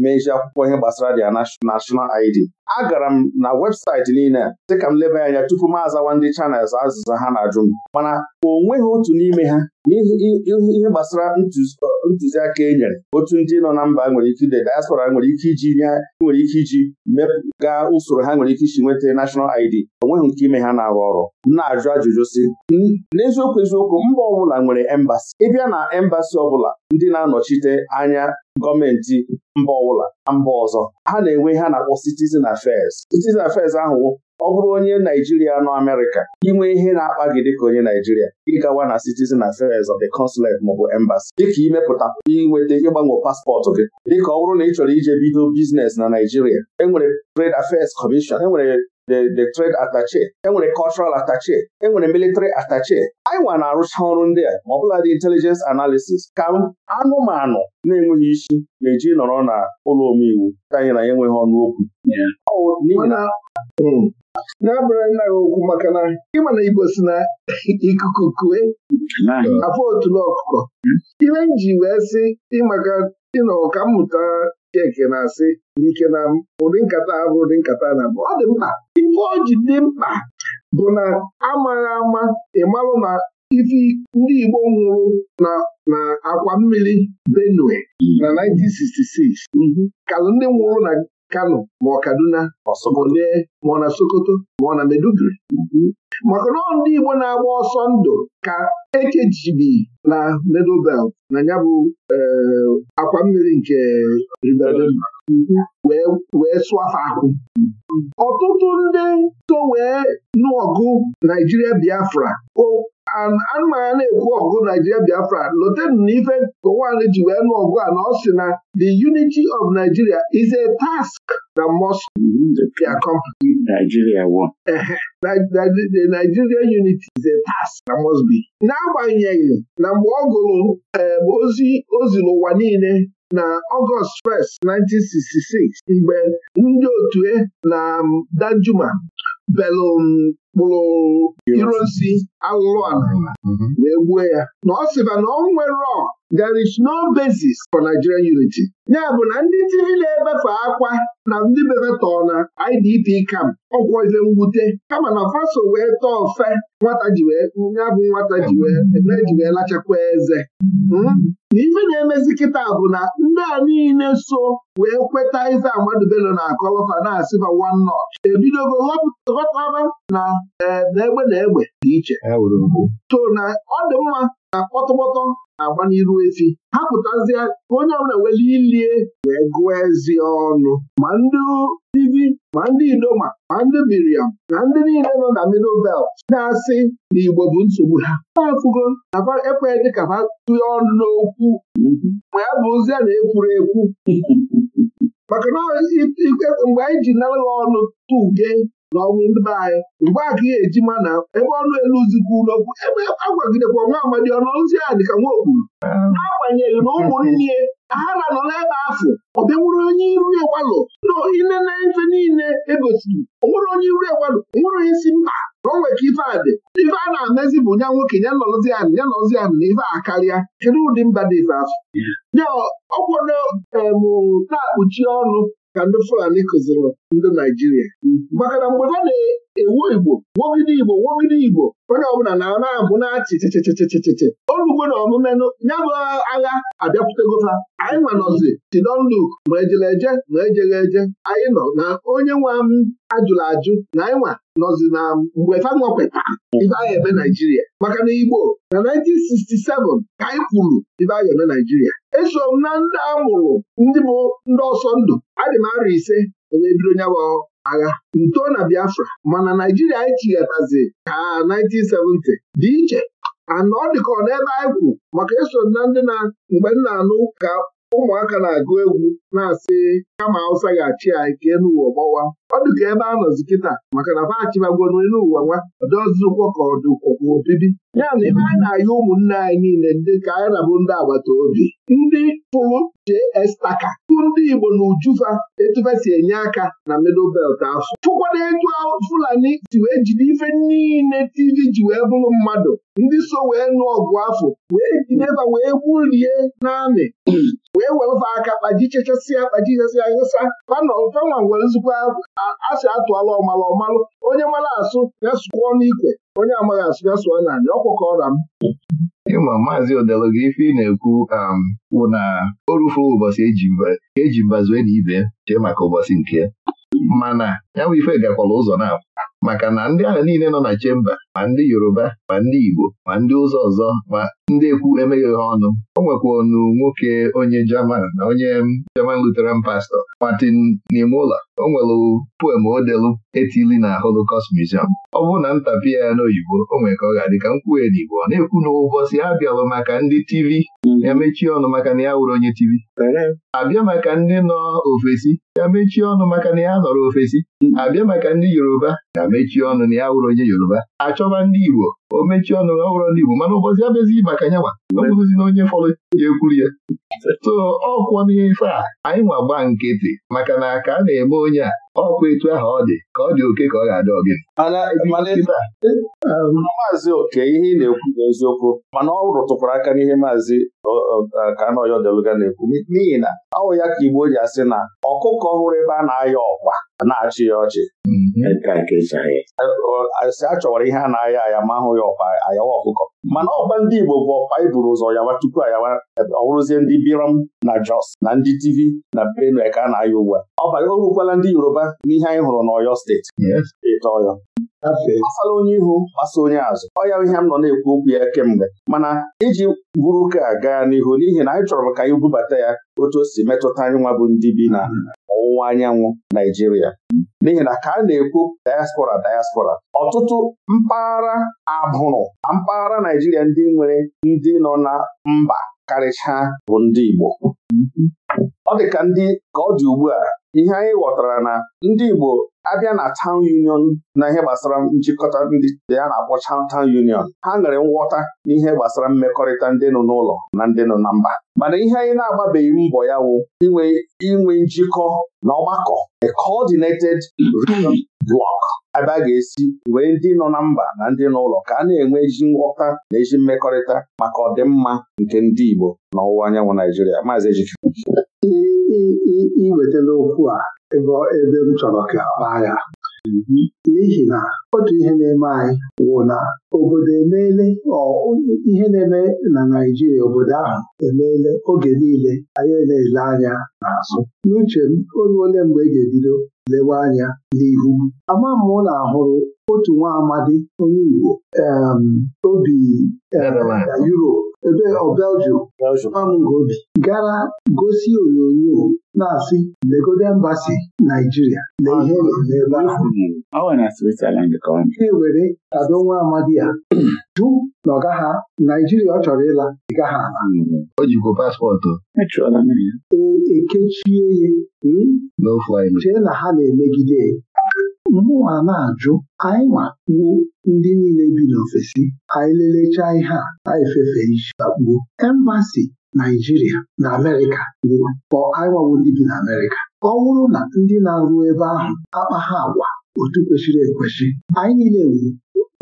mezie akwụkwọ ihe gbasara their national ID agara m na webụsaịtị niile dị ka m leba anya tupu m azawa ndị chanels azụzụ ha na-ajụ m mana o nweghị otu n'ime ha n'ihi ihe gbasara ntụziaka e nyere otu ndị nọ na mba nwere ike ide diaspora nwere ike iji nye nwere ike iji mepụga usoro ha nwere ike isi nweta nashọnal ID onweghị nweghị nke ime ha na-arụ ọrụ na-ajụ ajụjụ si n'eziokwu eziokwu mba ọbụla nwere embasi ịbịa na embasi ọbụla ndị na-anọchite anya gọọmenti mba ọbụla na mba ọzọ ha na-enwe ha na-akpọ citizen affairs citizen affairs ahụ ọ bụrụ onye Naijiria nọ Amerịka inwe ihe na-akpa gị dịka onye Naijiria ịgawa na citizen affairs of the consulate bụ embassy dịka imepụta inweta ịgbanwe paspọtụ gị dịka ọ bụrụ na ị chọrọ ije bido biznes na Naijiria enwere trade affairs commission enwere the trade attache enwere cultural attache enwere military attaché. anyị nwa na-arụcha ọrụ ndị a ma ọ bụla dị intelijens analisis ka anụmanụ na-enweghị isi na-eji nọrọ na ụlọ omeiwu anyị na ya enweghị ọnụ okwu na-abara nna gị okwu maka na ịma na Igbo si na ikuku kue afọ otulu ọkụkọ hmm? ihe nji wee sị ịmaka ịnọ ka mmụta nke na-asị n'ike na ụdị nkata ahụ ụdị nkata na ọ dị mkpa ife o ji dị mkpa bụ na amaghị ama ịmarụ na ife ndị Igbo nwụrụ na na mmiri Benue na 1966 mhm. kalụ ndị nwụrụ na Kano ma ọ Kaduna ma ọ e, ma ọ na Sokoto ma ọ na Meduguri mhm. maka na ndị Igbo na-agba ọsọ ndụ ka ekejibi na Middle na ya bụ eh, akwa mmiri nke mhm. wee swafa akwụ. Mhm. ọtụtụ ndị so wee nụọgụ Naijiria Biafra anụmanya na-ekwu ọgụ Naijiria Biafra lotenu na ife Gowon ji wee nụ ọgụ na the unity of Nigeria is a task na Moscow Nigeria the Nigeria unity is a task na Mosby n'agbanyeghị na mgbe ọ gụrụ eh, ozi ozi n'ụwa niile na ọgọst 1st 1966 mgbe ndị otu e na Danjuma belụ mkpụrụ um, iro alụlụ ala wee mhm. gbuo ya na ọ sịba na ọ nwere there is no basis for Nigerian unity ya bụ na ndị tiri na-ebefe akwa na ndị bebetọọ na IDP camp ọgwọ ibe mwute kama na faso wee tọọ fe nwata ji wee ya bụ nwata ji wee lachakwa eze hmm? na ife na-emezi kịta bụ na ndị a niile so wee kweta ife Ahmadu na akọlọfa na asịba one notch ebidogo họpụta ghọtara na e, egbe na egbe dị iche to na ọ dị mma na kpọtọkpọtọ na-agba n'iru efi ha pụtazie ka onye ọbụla were ilie wee gụọ ezi ọnụ ma ndị ivi ma ndị idoma ma ndị miriam ma ndị niile nọ na middle belt na-asị na igbo bụ nsogbu ha na-afụgo na ekweghị dị ka ha tụnye ọnụ n'okwu mm-hmm. ma ya bụ ozi a na-ekwuru ekwu maka na e, mgbe anyị ji nara ha ọnụ tuge na ọnwụ ndị be anyị mgbe a ka ihe eji na ebe ọnụ elu zikwa ụlọkwu ebe agwagidekwa nwa amadi ọnụ ozi a dị ka nwa okwuru ah. n'agbanyeghị na ụmụnne ahara nọ n'ebe afọ ọ bịa onye iru egwalụ inene ife niile egosiri onwere onye iru egwalụ nwere onye si mba na o nwere ka ife a dị ife a na-amezi bụ nya nwoke ya nọzi anị ya nọzi anị na ife a karịa kedu ụdị mba dị ife afọ ya ọkwado emụ na-akpuchi ọnụ ka ndị Fulani kụziri ndị Naijiria maka na mgbe ha na-ewu Igbo wogide Igbo wogide Igbo onye ọbụla na na-abụ na-achịchịchịchịchịchị achị olugbo na omume ya agha abịapụtago ha anyị nwanọzi tidonluk ma ejela eje ma ejegha eje anyị nọ na onye nwa m ajụrụ ajụ na anyị nwa nọzi na mgbe ha nwapụta ibe anyị eme Naijiria maka na Igbo na 1967 ka anyị kwuru ibe anyị eme Naijiria eso m na ndị amụrụ ndị bụ ndị ọsọ ndụ adị m arọ ise onye bido nyabụ agha nto na Biafra mana Naijiria anyị chighatazi ka 1970 dị iche anọ dịka ọ n'ebe anyị kwu maka eso na ndị na mgbe m anụ ka ụmụaka na-agụ egwu na-asị kama awụsa ga-achị anyị kee n'ụwa gbawa ọ dịka ebe a nọzi kịta maka na fachibagoro n'ụwa nwa ọdọzụkwọ ka ọ dịkwakwa obibi ya na ebe anyị na-ayị ụmụnne anyị niile ndị ka anyị na-abụ ndị agbata obi ndị pụrụ jee estaka. tupu ndị Igbo na Ujufa etufa e si enye aka na middle belt afọ tụkwana etu Fulani si wee jide ife niile TV ji wee bụrụ mmadụ ndị so wee nụ ọgụ afọ wee jideba wee gburie n'amị wee welụfa aka kpajichechasịa kpajichesịa hụsa mana ọfenwa nwere nzukọ asị atụọla ọmalụ ọmalụ onye mara asụ ya ọnụ ikwe onye amaghị asụ ya sụọ n'anị ọkwụkọra m ịma maazị odelu gị ife ị na-ekwu kwụ um, na o ụbọchị eji mba wee na ibe chee maka ụbọchị nke mana ya bụ ife gakwala ụzọ na maka na ndị ahụ niile nọ na chemba ma ndị Yoruba ma ndị Igbo ma ndị ụzọ ọzọ ma ndị ekwu emeghị ha ọnụ o nwekwanu nwoke onye Jaman na onye German Lutheran pastọ Martin Niemöller o nwere poem odelu etili na Holocaust Museum ọ bụrụ na ntapi ya n'oyibo o nwere ka ọ ga-adị ka nkwuhe n'Igbo ọ na-ekwu na ụbọchị ha bịalụ maka ndị TV ya mechie ọnụ maka na ya wụrụ onye TV abịa maka ndị nọ ofesi ya mechie ọnụ maka na ya nọrọ ofesi abịa maka ndị Yoruba ya mechie ọnụ na ya wụrụ onye Yoruba achọ chọba ndị Igbo o mechie ọnụ ọhụrụ ndị Igbo mana ụbọchị abịazighị maka nyanwa ọbụghịzi na onye fọrọ ya ekwuru ya so ọkwọ n'ife a anyị nwa gba nkịtị maka na ka a na-eme onye a ọkwa etu ahụ ọ dị ka ọ dị oke ka ọ ga-adị ọgị ehm, maazị oke ihe ị na-ekwu n'eziokwu mana ọ rụtụkwara aka n'ihe maazị ka anọya na-ekwu n'ihi na ọ ya ka Igbo ji asị na ọkụkọ ọhụrụ ebe a na-ayọ ọkwa na-achị ya ọchị hmm. Mhm. achọwara ihe a na-aya aya ma ahụ ya ọkpa ayawa ọkụkọ mana ọkpa ndị Igbo bụ ọkpa iburu e ụzọ yawa tupu ayawa ọwụrụzie ndị Biram na Jos na ndị TV na Benue ka a na-aya ugbu a ọba ohukwala ndị Yoruba n'ihe anyị hụrụ n'Oyo steeti ịta Ọyọ gbasara onye ihu gbasa onye azụ ọ ya ihe m nọ na-ekwu okwu ya kemgbe mana iji buru ụka gaa n'ihu n'ihi na anyị chọrọ ka anyị bubata ya otu o si metụta anyị nwa bụ ndị bi na ọwụwa anyanwụ Naijiria n'ihi na ka a na-ekwu diaspora diaspora ọtụtụ mpaghara abụrụ na mpaghara Naijiria ndị nwere ndị nọ na mba karịchaa bụ ndị Igbo ọ dị ka ndị ka ọ dị ugbu a ihe anyị ghọtara na ndị Igbo abịa na town union na ihe gbasara njikọta ndị ya na-akpọ town union ha nwere nghọta n'ihe gbasara mmekọrịta ndị nọ n'ụlọ na ndị nọ na mba mana ihe anyị na-agbabeghị mbọ ya wụ inwe inwe njikọ na ọgbakọ a coordinated region block ebe a ga-esi wee ndị nọ na mba na ndị n'ụlọ ka a na-enwe ezi nghọta na ezi mmekọrịta maka ọdịmma nke ndị Igbo na ọwụwa anyanwụ Naijiria maazị Ejike iwetala okwu a ebe ebe m chọrọ ka kpaa ya n'ihi na otu ihe na-eme anyị wụ na obodo emeele ihe na-eme na Naijiria obodo ahụ emeele oge niile anyị na-ele anya n'azụ n'uche m ole mgbe ị ga-ebido lewe anya n'ihu ama m na ahụrụ otu nwa amadi onye Igbo obi Europe ebe ọ oh, Belgium nwa m obi gara gosi onyonyo na-asị legode mbasi Naijiria na ihe ebe ahụ ewere nwa amadi ya jụ na ọ gaghị Naijiria ọ chọrọ ịla ị gaghị ala mm-hmm. o paspọtụ ekechie ya e, e hmm? chee na ha na-emegide mmụọ na-ajụ anyị nwa wuo ndị niile bi n'ofesi anyị lelechaa ihe a anyị fefee isi lakpuo embasi Naijiria na Amerịka bụ bi na Amerịka ọ bụrụ na ndị na-arụ ebe ahụ akpagha agwa otu kwesịrị ekwesị anyị niile wu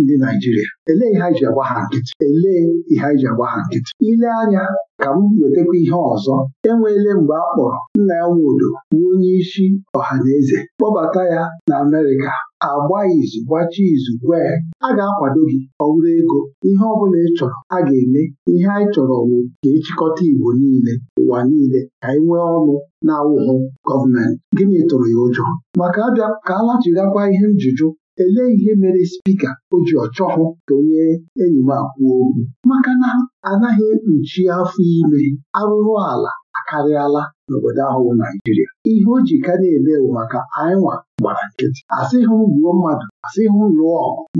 ndị Naijiria elee ihe anyị ji agba ha nkịtị elee ihe anyị ji agba ha nkịtị ile anya ka m wetakwa ihe ọzọ enweele mgbe a kpọrọ nna ya nwodo bụ onye isi ọha na eze kpọbata ya na Amerịka agba izu gbachie izu gwa a ga-akwado gị ọwụrụ ego ihe ọ bụla ị chọrọ a ga-eme ihe anyị chọrọ bụ ka ịchịkọta e Igbo niile ụwa niile ka anyị nwee ọnụ na-awụhụ gọọmenti gịnị tụrụ ya ụjọ maka abịa ka alachighakwa ihe njụjụ elee ihe mere spika o ji ọchọhụ ka onye enyi m akwụ okwu maka na anaghị ekpuchi afọ ime arụrụ ala akarịala n'obodo ahụ bụ Naijiria ihe o ji ka na-eme bụ maka anyịnwa gbara nkịtị asịghị m mmadụ asịghị m ọgụ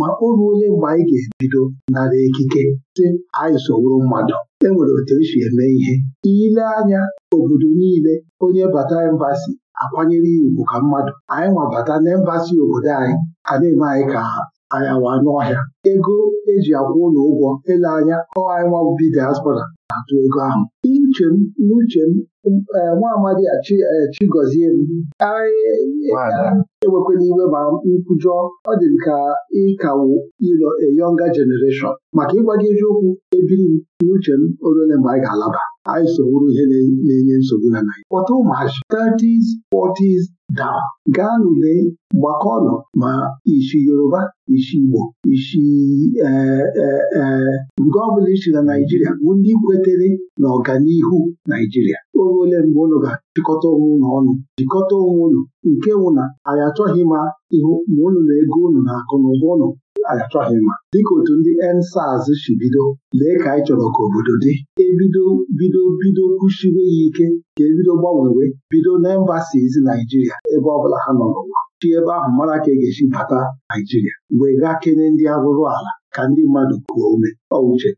ma o ruo onye mgbe anyị ga-ebido nara ekike sị anyị sowuru mmadụ e nwere otu esi eme ihe ile anya obodo niile onye bata embasi akwanyere ya ugwu ka mmadụ anyị nwabata n'embasi obodo anyị a na-eme anyị ka ayawa n'ọhịa ego eji akwụ ụlọ ụgwọ ele anya ọ bi diaspora na-atụ ego ahụ Uche m n'uche m eh, nwa amadi Chigozie eh, m e, e, e, ewekwala iwe ma nkwujọ ọ dị m ka a younger generation maka gị eziokwu ebiri m n'uche m orole mgbe anyị ga-alaba anyị sogburu ihe na-enye nsogbu na Naịjirịa kpọta ụmụazị 30s 40s daa gaa n'ule gbakọnụ ma isi Yoruba isi Igbo isi ee e, e, nke ọbụla isi na Naijiria bụ ndị kwetere na ọganihu Naijiria oge ole mgbe ụlọ ga-achịkọta onwe ụlọ ọnụ jikọta onwe ụlọ, nke wụ na anyị achọghị ma ihu ma ụnụ na ego ụnụ na akụ na ụba ụnụ achọghị mma dịka otu ndị ensaz si bido lee ka anyị chọrọ ka obodo dị ebido bido bido kwuchiwe ya ike ka ebido gbanwewe bido na embasizi Naijiria ebe ọ bụla ha nọ n'ụwa chi ebe ahụ mara ka e ga-esi bata Naijiria wee gaa kene ndị arụrụ ala ka ndị mmadụ kuo ume ọ uche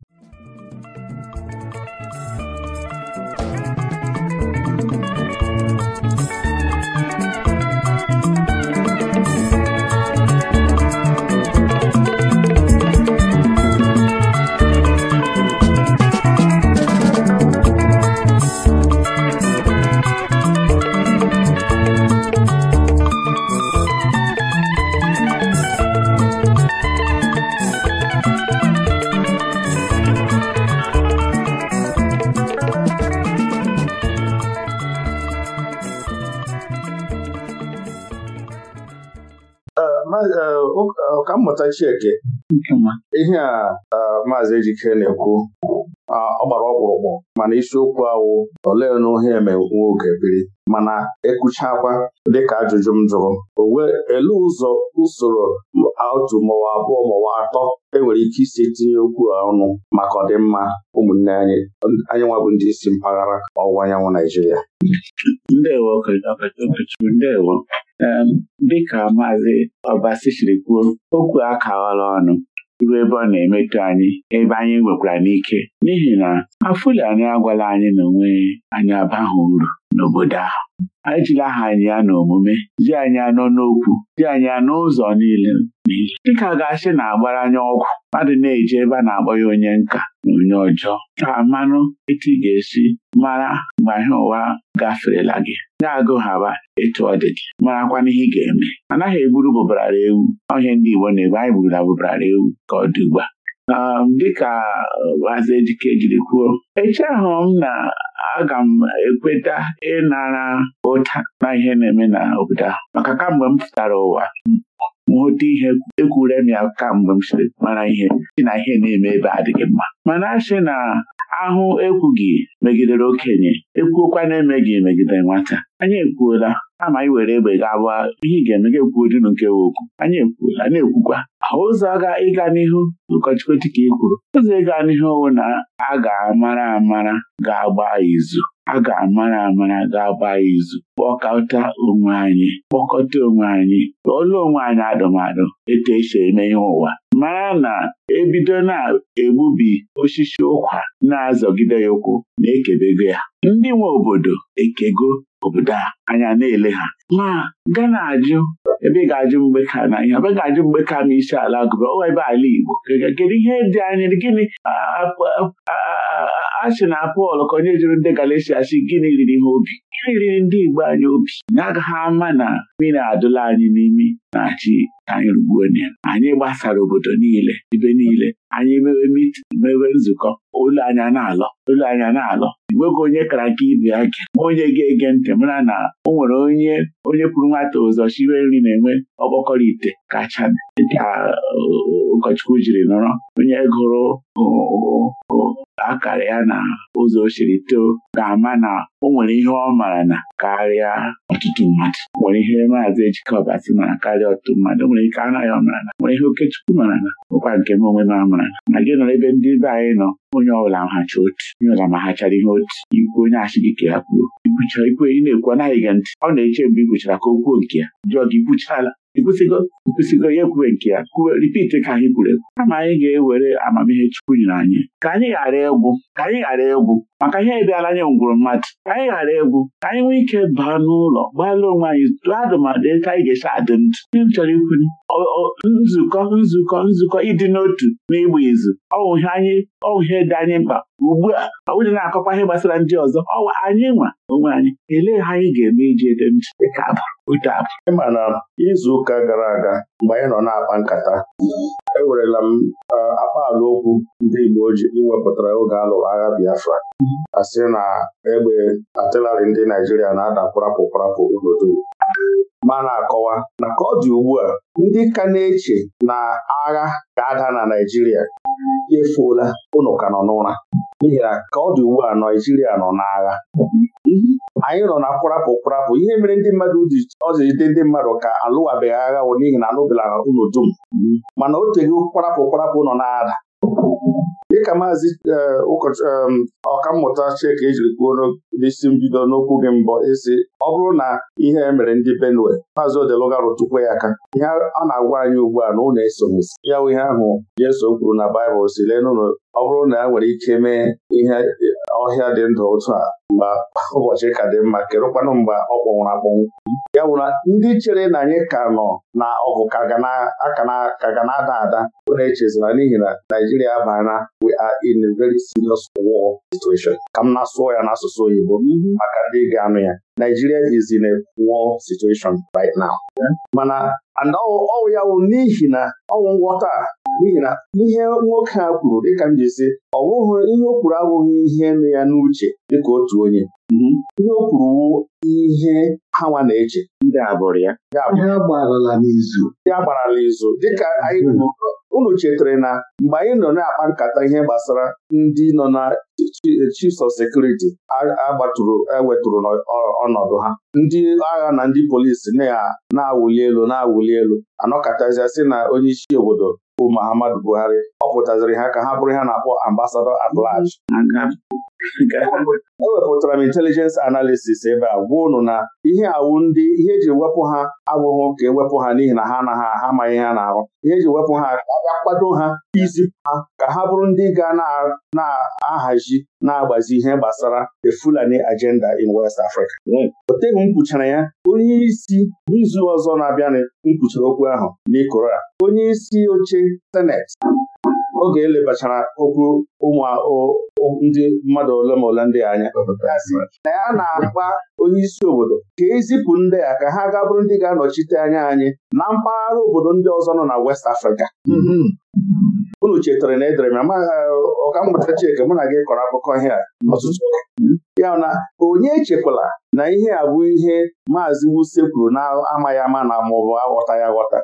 ọkammụta eh, eh, Chieke ihe a eh, maazị Ejike na-ekwu ah, ọ gbara ọkpụrụkpụ mana isiokwu awụ olee na ohe eme nwoke biri mana ekwuchakwa dịka ajụjụ m jụrụ owe ele ụzọ usoro otu maọbụ abụọ maọbụ atọ enwere ike isi tinye okwu ọnụ maka ọdịmma ụmụnne anyị anyị nwabụ ndị isi mpaghara ọwụwa anyanwụ Naijiria Dị ka maazị ọbasichiri siri kwuo okwu akawala ọnụ ruo ebe ọ na-emetụ anyị ebe anyị nwekwara n'ike n'ihi na afụli anyị agwala anyị na onwe anyị abaghị uru n'obodo ahụ ejila aha ya na omume ji anyị anọ n'okwu ji anyị anọ ụzọ niile dịka ga-asị na agbara anya ọgwụ mmadụ na-eji ebe a na-akpọ ya onye nka na onye ọjọọ ka mmanụ etu ị ga-esi mara mgbe ahịa ụwa gaferela gị ga-agụ haba etu ọ dị gị marakwa na ihe ị ga-eme anaghị egburu bụbarara ewu ọhịa ndị Igbo na-ebe anyị na bụbarara ewu ka ọ dị ugbu Um, dịka Maazị uh, Ejike jiri kwuo echeghụ m na aga m ekweta ịnara ụta na ihe na-eme na obodo ahụ maka kamgbe m pụtara ụwa hụta ihe ekwure m ya kamgbe m siri mara ihe si na ihe na-eme ebe adịghị mma mana asị na ahụ ekwughị megidere okenye ekwuokwa na-emeghị megidere nwata anyị ekwuola ama anyị were egbe ga-abụ ihe ị ga-eme ga-ekwugodinu nke we okwu anyị ekwuola na-ekwukwa ụzọ ịga n'ihu ụkọchukwu dịka ị kwuru ụzọ ịga n'ihu owe na a ga-amara amara ga-agba izu a ga-amara amara ga-agba ya izu kpọkọta onwe anyị kpọkọta onwe anyị kpọọla onwe anyị adụmadụ etu esi eme ihe ụwa mara na ebido na-egbubi osisi ụkwa na-azọgide ya ụkwụ na-ekebego ya ndị nwe obodo ekego obodo a anya na-ele ha ma gana ajụ ebe ị ga-ajụ mgbe ka na ihe ebe ga-ajụ mgbe ka ma isi ala gụba ebe ala Igbo kedu ihe dị anya gịnị achị na Pọl ka onye jụrụ ndị Galatia sị gịnị riri ha obi gịnị riri ndị Igbo anyị obi na agaghị ama na mmiri adụla anyị n'imi na-achị anyị rugbuo anyị gbasara obodo niile ibe niile anyị mewe mit mewe nzukọ olu anya na-alọ olu anya na-alọ enweghị onye kara nke ibe ya gị onye ga-ege ntị mara na o nwere onye onye kwuru nwata ụzọ chire nri na-enwe ọgbakọrọ ite kacha ka uh, ụkọchukwu jiri nọrọ onye gụrụ uh, uh, akara ya na ụzọ ochiri too ga-ama na o nwere ihe ọ mara na karịa ọtụtụ mmadụ nwere ihe maazị ejikọba si mara karịa a ga atụ nwere ike anaghị ọmarala nwere he okechukwu mara a Ụkwa nke m onwe a ọ ṅaala magị nọrọ ebe ndị be anyị nọ onye ọbụla mhacha otu onye ọla ma ha ihe otu ikwu onye asị gị ka ya kwuo ikwuchara ikwu enyi na-ekwu anaghị ga ntị ọ na-eche mgbe i ka o kwuo nke ya jụọ gị ikwuchala ikwụsịgo ikwụsịgo ya ekwube nke ya ripiti ka anyị kwuru ekwu kama anyị ga-ewere amamihe Chukwu nyere anyị ka anyị ghara egwu ka anyị ghara egwu maka ihe bịala anya ngwụrụ mmadụ ka anyị ghara egwu ka anyị nwee ike baa n'ụlọ gbalụ onwe anyị tụọ adụmadụ ka anyị ga-esi adị ndụ ihe m chọrọ ikwu nzukọ nzukọ nzukọ ịdị n'otu na ịgba izu ọwụ ihe anyị ọwụ ihe dị anyị mkpa ugbu a onye na-akọkwa ihe gbasara ndị ọzọ ọwa anyị nwa onwe anyị elee ha anyị ga-eme iji ede ntị dịka abụ abụ ịma na izu ụka gara aga mgbe anyị nọ na-akpa nkata ewerela m akpa ala okwu ndị Igbo ji iwepụtara oge a lụrụ agha Biafra mm-hmm. asị na egbe atịlarị ndị Naijiria na-ada kpụrapụkparapụ obodo ma na-akọwa na ka ọ dị ugbu a ndị ka na-eche na agha ga-ada na Naijiria efuola ụnụ ka nọ n'ụra n'ihi na ka ọ dị ugbu a Naijiria nọ n'agha anyị nọ na kwarapụ kwarapụ ihe mere ndị mmadụ ọjijide ndị mmadụ ka alụwabeghị agha n'ihi na anụbela unu dum mana o teghị kwarapụ kwarapụ nọ na dịka maazị eh, ọkammụta Chika ejiri kwuo n'isi mbido n'okwu gị mbọ isi ọ bụrụ na ihe e mere ndị Benue maazị odelugaru rụtụkwa ya aka ihe a na-agwa anyị ugbu a na ụlọ esoghịsi ya bụ ihe ahụ jeso kwuru na Baịbụl si lee n'ụlọ ọ bụrụ na e nwere ike mee ihe ọhịa dị ndụ otu a mgba, ụbọchị ka dị mma kedụkwanụ mgba ọ kpọnwụrụ akpọnwụ ya bụ na ndị chere na anyị ka nọ na ọgụ ka ga na-ada ada bụ na-echezina n'ihi na Naijiria abana we are in a very serious war situation ka m na-asụọ ya n'asụsụ oyibo maka ndị ga-anụ ya Naijiria is in a war situation right now mana ọwụ ya wụ n'ihi na ọwụ nghọta n'ihi na ihe nwoke a kwuru dịka m ji si ọ bụghị ihe o kwuru abụghị ihe nụ ya n'uche dịka otu onye mhm. ihe o kwuru ihe hawa na-eche ndị abụrụ ya ndị agbarala izu dịka anyị mhm. unu chetara na mgbe anyị nọ na-akpa nkata ihe gbasara ndị nọ na chiefs of security agbatụrụ ewetụrụ ọnọdụ ha ndị agha na ndị polisi na-awụli elu na-awụli elu anọkọtazia sị na onye isi obodo bụ Muhammadu Buhari ọ pụtaziri ha ka ha bụrụ ha na-akpọ ambasado at E ewepụtara m intelijens analisis ebe a gwa ụnụ na ihe awụ ndị ihe eji wepụ ha abụghị ka ewepụ ha n'ihi na ha anaghị ha amaghị ha na ihe eji wepụ ha ka a ha izipụ ha ka ha bụrụ ndị ga na-ahazi na-agbazi ihe gbasara the Fulani agenda in West Africa hmm. oteghị m kwuchara ya onye isi n'izu ọzọ na abịa m okwu ahụ n'ikora onye isi oche senet. oge elebachara okwu ụmụ ndị mmadụ ole ma ole ndị anya na ya na-agba onye isi obodo ka ezipụ ndị a ka ha ga ndị ga-anọchite anya anyị na mpaghara obodo ndị ọzọ nọ na West Africa mhm. unu chetara na edere m ọkammụta Chike mụ na gị kọrọ akụkọ ihe a ọtụtụ ya na onye echekwala na ihe a bụ ihe maazị Wuse kwuru na-amaghị ama na maọbụ aghọta ya mhm. aghọta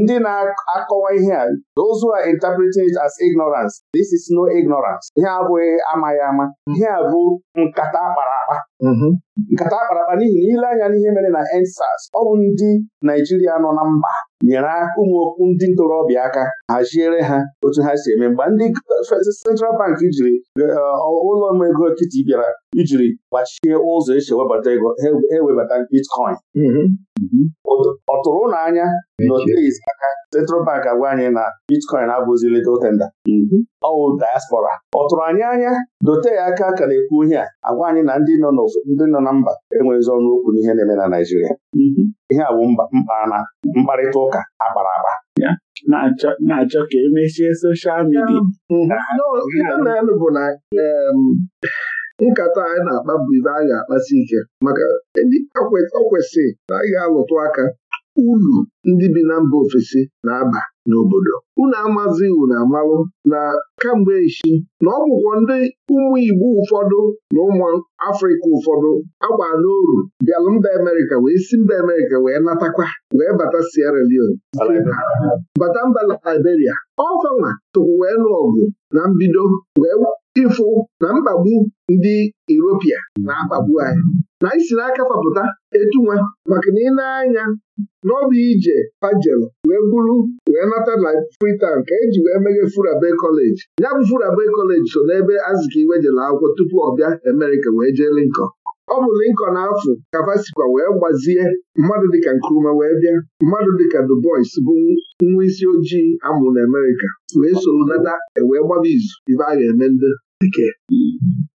ndị na-akọwa ihe a those a are interpreting it as ignorance this is no ignorance ihe abụghị amaghị ama ihe a bụ nkata akpara akpa mhm. nkata akparakpa n'ihi na ile anya n'ihe mere na EndSARS ọ bụ ndị Naijiria nọ na mba nyere aka ndị ntorobịa aka haziere ha otu ha si eme mgbe ndị Central Bank jiri eh, ụlọ ego nkịtị bịara ijiri gbachie ụzọ esi ewebata ego e, ewebata bitcoin mm-hmm. ọ tụrụ ụlọ anya n'oteis aka Central Bank agwa anyị na bitcoin abụghịzi legal tender mm-hmm. ọwụ diaspora ọ tụrụ anyị anya dote ya aka ka na-ekwu ihe a agwa anyị na ndị nọ na mba enweghịzi ọnụ okwu n'ihe na-eme na Naịjirịa mm-hmm. ihe a bụ mkpana mkparịta ụka akpara akpa na-achọ ka emechie soshal midia na-elu bụ na nkata anyị na-akpa bụ ibe a ga-akpasi ike maka ndị o kwesịrị na anyị ga-alụtụ aka uru ndị bi na mba ofesi na-aba n'obodo unu amazi unu amalụ na kamgbe echi na ọ bụkwa ndị ụmụ Igbo ụfọdụ na ụmụ Afrịka ụfọdụ agba n'oru bịalụ mba Amerịka wee si mba Amerịka wee natakwa wee bata Sierra Leone bata mba Liberia ọfanwa tụkwụ wee nụ ọgụ na mbido wee ịfụ na mkpagbu ndị Europia na-akpagbu anyị na anyị si n'aka fapụta etu nwa maka na ị na-anya n'ọba ije pajelu wee bụrụ wee nata na Freetown ka eji wee meghe Furabe kọleji ya bụ Furabe College so n'ebe iwe jere akwụkwọ tupu ọ bịa Amerịka wee jee Lincoln ọ bụ na afọ kapasikwa wee gbazie mmadụ dịka Nkrumah wee bịa mmadụ dịka Du bụ nwa isi ojii amụrụ na Amerịka wee soro nata ewee gbaba izu ibe a ga-eme ndị dike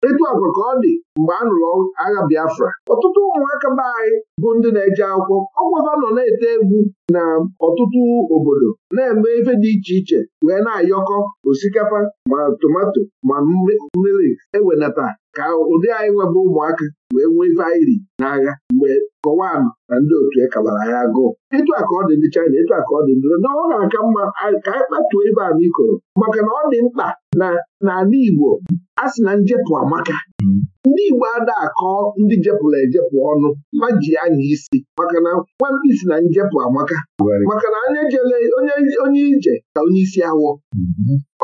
etu agwa ka ọ dị mgbe a nụrụ agha Biafra ọtụtụ ụmụaka be anyị bụ ndị na-eje akwụkwọ ọgwụva nọ na-ete egwu na ọtụtụ obodo na-eme ife dị iche iche wee na-ayọkọ osikapa ma tomato ma mmiri ewenata ka ụdị anyị nwebe ụmụaka wee nwee ife na-agha n'agha mgbe kọwaa na ndị otu e kabara ya agụụ ịtụ a ka ọ dị ndị China ịtụ a ka ọ dị ndị na ọ na-aka mma ka anyị kpatuo ibe a n'ikoro maka na ọ dị mkpa na n'ala Igbo a sị na njepụ amaka ndị Igbo ada akọ ndị jepụrụ ejepụ ọnụ ma ji anya isi maka na isi na njepụ amaka maka na onye jele onye ije ka onye isi awọ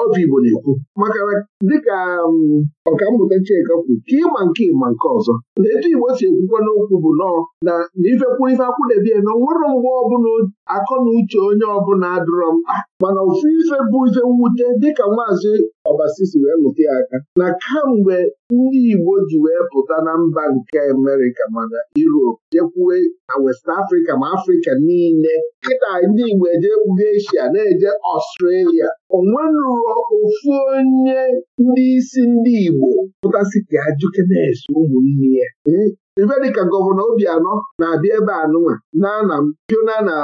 obi mm-hmm. Igbo na-ekwu maka na dịka um, mmụta Chika kwu ka ịma nke ịma nke ọzọ na etu Igbo si ekwukwa n'okwu bụ nọọ na ifekwu ife akwụdebie na nwere mgbe ọbụla akọ na uche onye ọbụla adịrọ mkpa mana ofu ife bụ ife mwute dịka maazị Ọbasisi wee lụta ya aka na kamgbe ndị Igbo ji wee pụta na mba nke Amerika mana Europe jekwue na West Africa ma Afrịka niile kịta ndị Igbo ejegbugo Asia na-eje Ọstrelia onwenuo ofu onye ndị isi ndị Igbo pụtasị ka ajụkenes ụmụnne ya hmm? gọvanọ Obianọ na-abịa ebe a nụnwa na Piona na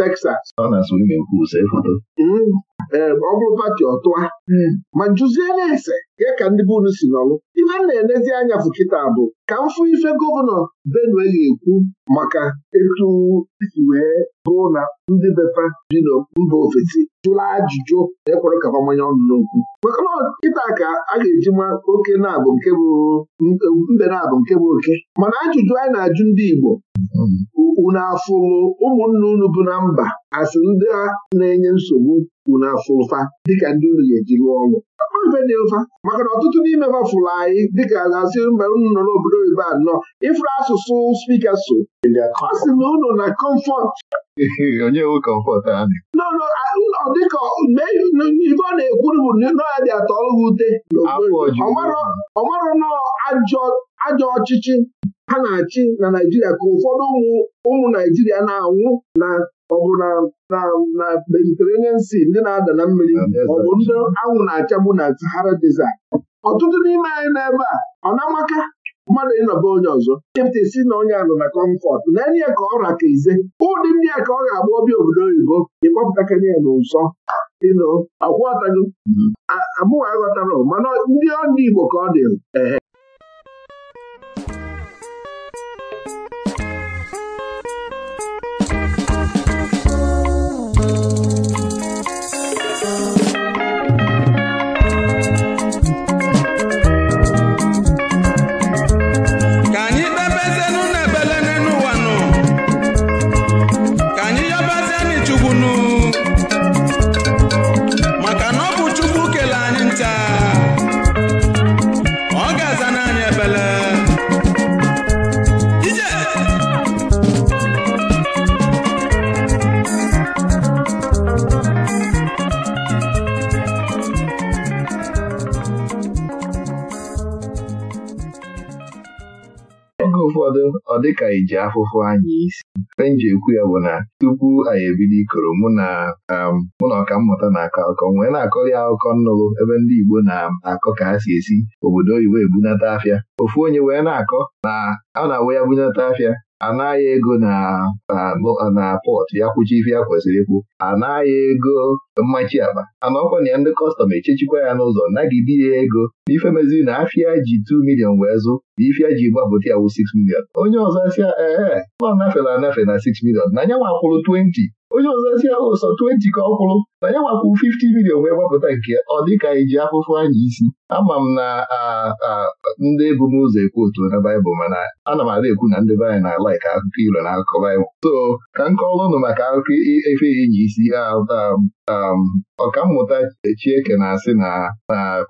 Texas ọ hmm? eh, bụrụ pati ọtụa hmm. ma na ese ya ka ndị be unu si nọlụ ihe m na-enezi anya bụ kịta bụ ka m fụ ife gọvanọ Benue ga-ekwu maka etu isi wee bụrụ na ndị bepa bi na mba ofesi jụla ajụjụ na-ekwere ka mmanya ọnụ n'okwu maka kịta ka a ga-eji ma oke na-abụ nke bụ mbe na-abụ nke bụ oke mana ajụjụ anyị na-ajụ ndị Igbo unu afụlụ ụmụnne unu bụ na mba asị ndị a na-enye nsogbu unu afụ ụfa dịka ndị unu ga-eji rụọ ọrụ dị ụfa maka na ọtụtụ n'ime ha fụrụ anyị dịka na-asị mba unu nọ n'obodo oyibo anọ ịfụrụ asụsụ spika so ọ sị na unu na kọmfọt onye nwe kọmfọt anyị ọ dịka ibe ọ na-ekwuru bụ nọadị atọrọ ha ute ọ marọ nọọ ajọ ọchịchị ha na-achị na Naijiria ka ụfọdụ ụmụ Naijiria na-anwụ na ọ na na Mediterranean ndị na-ada na mmiri ọbụ ndị anwụ na-achagbu na Sahara Desert ọtụtụ n'ime anyị n'ebe a ọ na-amaka mmadụ ịnọba onye ọzọ chepụta si na onye anọ na kọmfọt na enye ka ọ raka ize ụdị ndị a ka ọ ga-agba obi obodo oyibo ịkpọpụtakanye ya n'ụzọ ịnụ akwụọtago mm-hmm. amụghị aghọtara mana ndị ọdị Igbo ka ọ dịrị ọ dịka iji e afụfụ anyị isi e ekwu ya bụ na tupu anyị ebido ikoro mụ na um, mụ na ọkammụta na-akọ akọ nwee na-akọrị akụkọ nnụrụ ebe ndị Igbo na-akọ ka ha si esi obodo oyibo ebunata afịa ofu onye wee na-akọ na a na-awe ya bunata afịa anaghị ego na pọt ya kwụchi ife ya kwesịrị ikwu anaghị ego mmachi akpa ọkwa na ya ndị kọstọm echechikwa ya n'ụzọ nagide ya ego n'ife meziri na afịa ji 2 milion wee zụ na ife ji gbapụta ya wụ 6 milion onye ọzọ sịa ee ọ nafela anafe na 6 milion na nya nwakwụrụ 20 onye ọzọ si ahụ ụsọ 20 ka ọ kwụrụ na ya nwakwu 50 milion wee gbapụta nke ọ dịka iji akwụkwọ anyị isi ama m na ndị bụ ụzọ ekwu otu na baịbụl mana ana m ada ekwu na ndị be anyị na laik akụkọ ilo na akụkọ baịbụl so ka m kọọrọ ụnụ maka akụkọ efe enyi isi ọkammụta Echieke na-asị na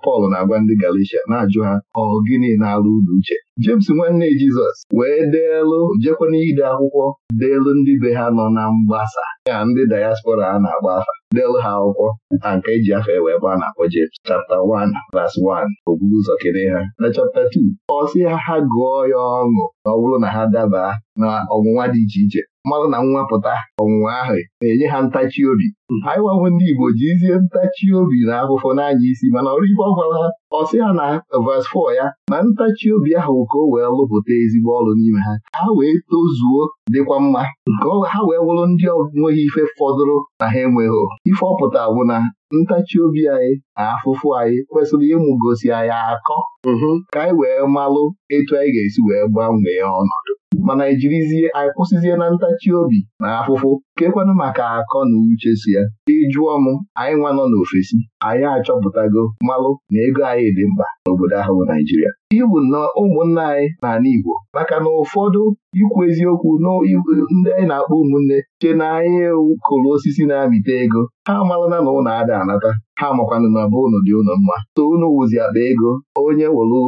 Pọl na-agwa ndị Galicia na-ajụ ha ọ gịnị na-alụ ụlọ uche jemes nwanne Jizọs wee deelụ jekwana ide akwụkwọ deelu ndị be ha nọ na mgbasa ya ndị dayaspora a na-agba afa deelu ha akwụkwọ na nke eji afa e wee gba na-akpọ James chapta 1 verse 1 ogburu ụzọ kene ha na chapta 2 ọ sị ha ha gụọ ya ọṅụ na ọ bụrụ na ha daba na ọnwụnwa dị iche iche mmadụ na nwa pụta ọnwụnwa ahụ na-enye ha ntachi obi hmm. anyị nwanwe ndị Igbo jizie ntachi obi na afụfụ n'anya isi mana ọrụ ibe ọ gwara ha ha na vas 4 ya na ntachi obi ahụ ka o wee lụpụta ezigbo ọrụ n'ime ha ha wee tozuo dịkwa mma hmm. ka ha wee wụrụ ndị ọ nweghị ife fọdụrụ na ha enweghị ife ọpụta bụ na ntachi obi anyị na afụfụ anyị kwesịrị ịmụ ịmụgosi anyị akọ mm-hmm. ka anyị wee malụ etu anyị ga-esi wee gbanwee ọnọdụ mana ijirizie anyị kwụsịzie na ntachi obi na afụfụ kekwanụ maka akọ na uche si ya ị jụọ m anyị nwa nọ n'ofesi anyị achọpụtago mmalụ na ego anyị dị mkpa n'obodo ahụ bụ Naijiria ihe bụ nnọọ ụmụnna anyị n'ala Igbo maka na ụfọdụ ikwu eziokwu ndị anyị na-akpọ ụmụnne chee na anyị kụrụ osisi na-amịta ego ha amarala na ụlọ ada anata ha makwanụ na be ụnụ dị ụnụ mma so unu wụzi akpa ego onye wụrụ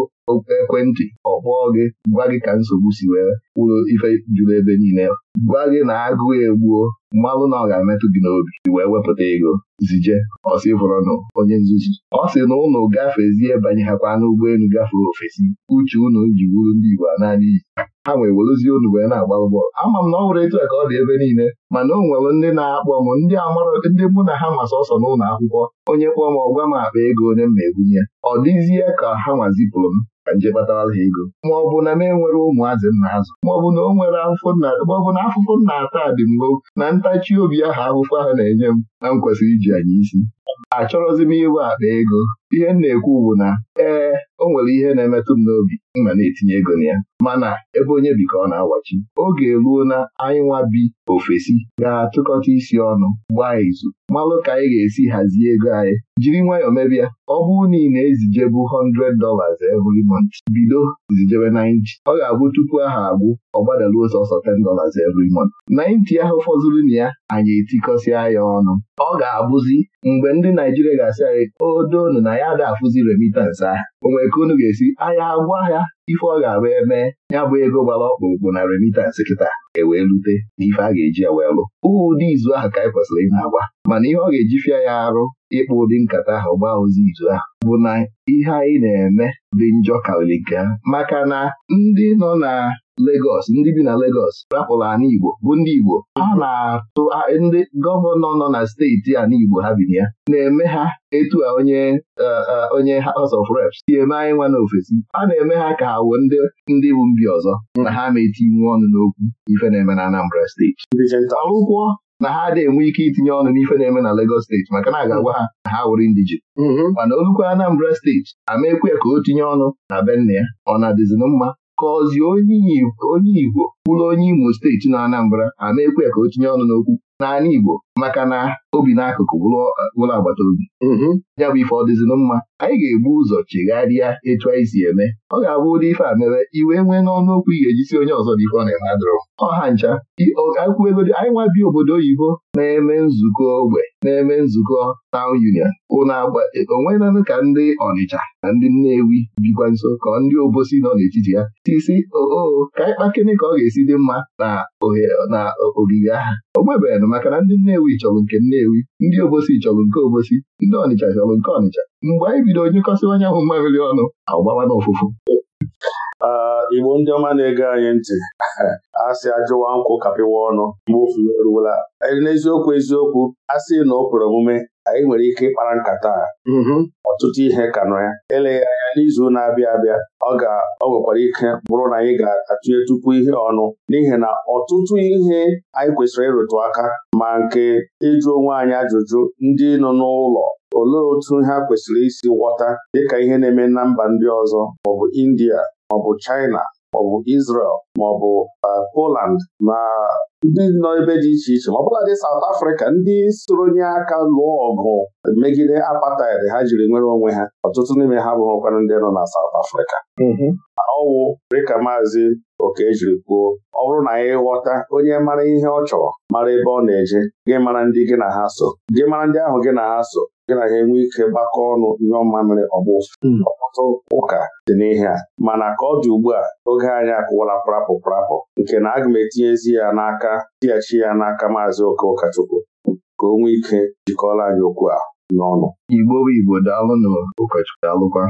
ekwentị ọ gị gwa gị ka nsogbu si wee wụrụ ife juru ebe niile gwa gị na agụụ egbuo mmalụ na ọ ga-emetụ gị n'obi wee wepụta ego zije ọsị fọrọnụ onye nzuzu ọ sị na ụnụ gafezie banye hakwa n'ụgbọelu gafere ofesi uche unu ji wuru ndị Igbo a naanị iyi ha nwee werezie unu wee na-agba bọọlụ ama m na ọ hụrụ etu a ka ọ dị ebe niile mana o nwere ndị na-akpọ m ndị amara ndị mụ na ha masị ọsọ n'ụlọ akwụkwọ onye kpọọ m ọgwa m akpa ego onye m na-ebunye ọ dịzie ka ha nwazipụrụ m ka nje kpatara ha ego ma ọ bụ na m enwere ụmụazị nna azụ ma ọ bụ na o nwere afụfụ nna ma ọ bụ na afụfụ nna ata dị mgbo na ntachi obi ahụ afụfụ ahụ na-enye m na m kwesịrị iji anyị isi achọrọzi m iwe akpa ego ihe m na-ekwu bụ na ee o nwere ihe na-emetụ m n'obi mma na-etinye ego na ya mana ebe onye bi ka ọ na-awachi oge eruo na anyị bi ofesi ga-atụkọta isi ọnụ gbaa izu malụ ka anyị ga-esi hazie ego anyị jiri nwayọọ mebịa ọ bụrụ na ị na-ezijebu 10 dollars every month bido zijebe 90 ọ ga-abụ tupu aha agwụ ọ gbadaruo sọsọ 10 dollars every month 90 ahụ fọzuru na ya anyị etikọsịa ya ọnụ ọ ga-abụzi mgbe ndị Naijiria ga-asị anyị odonu na ya ga-afụzi remitans ahụ o nwere ka unu ga-esi ahịa agwọ ahịa ife ọ ga-abụ eme ya bụ ego gbara ọkpụrụkpụ na remitans kịta ewee rute na ife a ga-eji ewee lụ ụdị izu ahụ ka anyị kwesịrị ị na mana ihe ọ ga-eji ya arụ ịkpụ ụdị nkata ahụ gbaa ozi izu ahụ bụ na ihe anyị na-eme dị njọ karịrị nke ha maka na ndị nọ na Legos, ndị bi na Legọs rapụrụ ana Igbo bụ ndị Igbo ha na-atụ ndị gọvanọ nọ na steeti ana Igbo ha bi na ya na-eme ha etu a onye onye House of Reps si eme anyị nwa n'ofesi a na-eme ha ka ha wuo ndị ndị bụ mbi ọzọ na ha metinwu ọnụ n'okwu ife na-eme na Anambra steeti ọrụkwọ na ha adịghị enwe ike itinye ọnụ n'ife na-eme na Lagos steeti maka na a ga-agwa ha na ha wụrụ ndije mm-hmm. mana olukwu Anambra steeti amaekwu ya ka o tinye ọnụ na be ya ọ na-adịzi mma ka ọzi onye Igbo kwuru onye Imo steeti na Anambra amaekwu ya ka o tinye ọnụ n'okwu n'ala Igbo maka na obi n'akụkụ bụrụ agbata obi mm-hmm. ya bụ ife ọ mma anyị ga-egbu ụzọ chegharịa etu anyị si eme ọ ga-abụ ụdị ife a mere iwe nwee n'ọnụokwu okwu ị ga-ejisi onye ọzọ dị ọ na-eme adụrụ ọha ncha akwụegodo anyị bi obodo oyibo na-eme nzukọ ogbe na-eme nzukọ taụn union ụna onwenanụ ka ndị Ọnịcha na ndị Nnewi bikwa nso ka ndị obosi nọ n'etiti ya tisi oo ka anyị kpakịnị ka ọ ga-esi dị mma na ogige agha o nụ maka na ndị Nnewi chọrọ nke Nnewi ndị Obosi chọrọ nke Obosi ndị Ọnịcha chọrọ nke Ọnịcha mgbe anyị bidoro kọsịwa anyanwụ mmamịrị ọnụ agbawa n'ụfụfụ Igbo ndị ọma na ego anyị ntị a sị ajụwa nkwụ kapịwa ọnụ mgbe ofu eruola n'eziokwu eziokwu a sị na ọ kwere omume anyị nwere ike ịkpara nkata ọtụtụ ihe ka nọ ya eleghị anya n'izu na-abịa abịa ọ ga ọ ike bụrụ na anyị ga-atụnye tupu ihe ọnụ n'ihi na ọtụtụ ihe anyị kwesịrị ịrụtụ aka ma nke ịjụ onwe anyị ajụjụ ndị nọ n'ụlọ olee otu ha kwesịrị isi ghọta dịka ihe na-eme na mba ndị ọzọ maọbụ India maọbụ China maọbụ Israel maọbụ uh, Poland na ndị nọ ebe dị iche iche ma ọbụla dị South Africa ndị soronye aka lụọ ọgụ megide apartheid ha jiri nwere onwe ha ọtụtụ n'ime ha bụrụkwanụ ndị nọ na South Africa mm-hmm. ọwụ dịka maazị Okejiri kwuo ọ bụrụ na anyị ghọta onye mara ihe ọ chọrọ mara ebe ọ na-eje gị mara ndị gị na ha so gị mara ndị ahụ gị na ha so gị na ya enwe ike gbakọ ọnụ ihe ọma ọgbụ ọtụtụ hmm. ụka dị n'ihe a mana ka ọ dị ugbu a oge anyị akụwala prapụ prapụ nke na aga m etinyezi ya n'aka tighachi ya n'aka maazị oke ụkọchukwu ka o nwee ike jikọọla anyị okwu a n'ọnụ igbo bụ igbo daalụ ụkọchukwu daalụkwa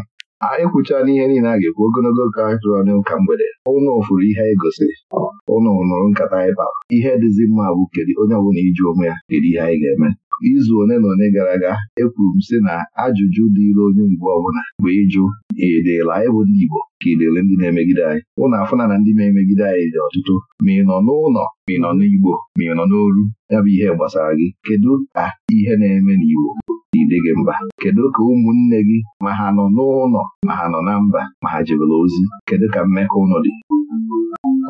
anyị kwuchala ihe niile a ga-ekwu ogologo oge anyị tụrụ ọnụ ka mgbede ụnụ fụrụ ihe anyị gosiri ụnụ nụrụ nkata anyị bara ihe dịzi mma bụ kedu onye ọbụla iji ụmụ ya kedu ihe anyị ga-eme izu one na one gara aga ekwuru m sị na ajụjụ dịịrị onye mgbe ọbụla bụ ịjụ edela anyị bụ ndị Igbo ka idele ndị na-emegide anyị ụnụ afụna na ndị na-emegide anyị dị ọtụtụ ma ị nọ n'ụlọ ma ị nọ n'Igbo ma ị nọ n'olu ya bụ ihe gbasara gị kedu ka ihe na-eme n'Igbo na-ide gị mba kedu ka ụmụnne gị ma ha nọ n'ụlọ ma ha nọ na mba ma ha jebere ozi kedu ka mmekọ ụlọ dị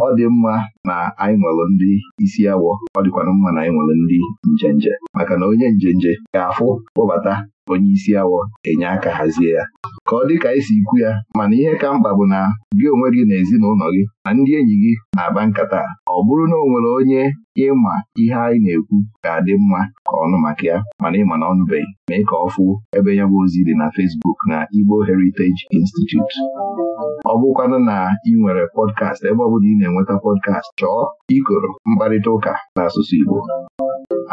ọ dị mma na anyị nwere ndị isi awọ ọ dịkwana mma na anyị nwere ndị njenje maka na onye nje nje ga-afụ kpọbata onye isi awọ enye aka hazie ya ka ọ dị ka esi ikwu ya mana ihe ka mkpa bụ na gị onwe gị na ezinụlọ gị na ndị enyi gị na-akpa nkata ọ bụrụ na o nwere onye ịma ihe anyị na-ekwu ga-adị mma ka ọnụ maka ya mana ịma na ọnụbeghị mee ka ọ fụ ebe ya ozi dị na Facebook na Igbo Heritage Institute ọ bụkwanụ na ị nwere pọdkast ebe ọ bụla ị na-enweta pọdkast chọọ ikoro mkparịta ụka n'asụsụ Igbo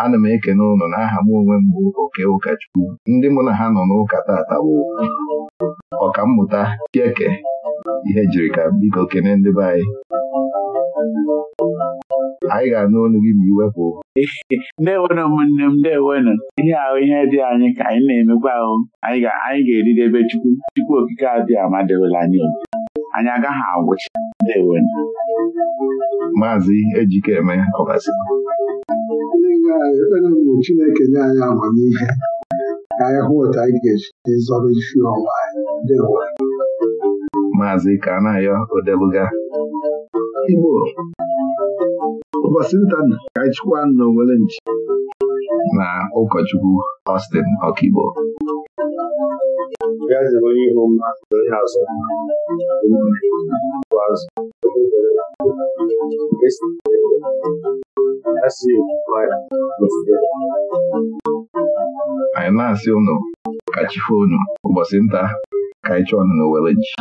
ana m ekene ụlọ aha m onwe m bụ oke ụkọchukwu ndị mụ na ha nọ n'ụka tata bụ ọkammụta Chieke ihe jiri ka biko kene ndị be anyị anyị ga-anụ ọnụ gị ma iwepụ ndewenu ụmụnne m ndewenu ihe ahụ ihe dị anyị ka anyị na-emekwa ahụ anyị ga-eridebe Chukwu Chukwu okike adịghị amadewela anyị anyị agaghị agwụcha ndewo maazị ejikeme ọgasị bụ Chineke nye anyị amamihe ka anyị hụ otu anyị ga-eji zọrọ isi ọnwa anyị maazị Kanayo Odeluga Igbo ụbọchị nta ka anyị chịkwa na Owele nchi na ụkọchukwu Austin Ọkigbo Bịa zere onye ihu mma onye azụ bụ azụ anyị na-asị ụnụ ka chi ụbọchị nta ka anyị chọọ ọnụ na Weleji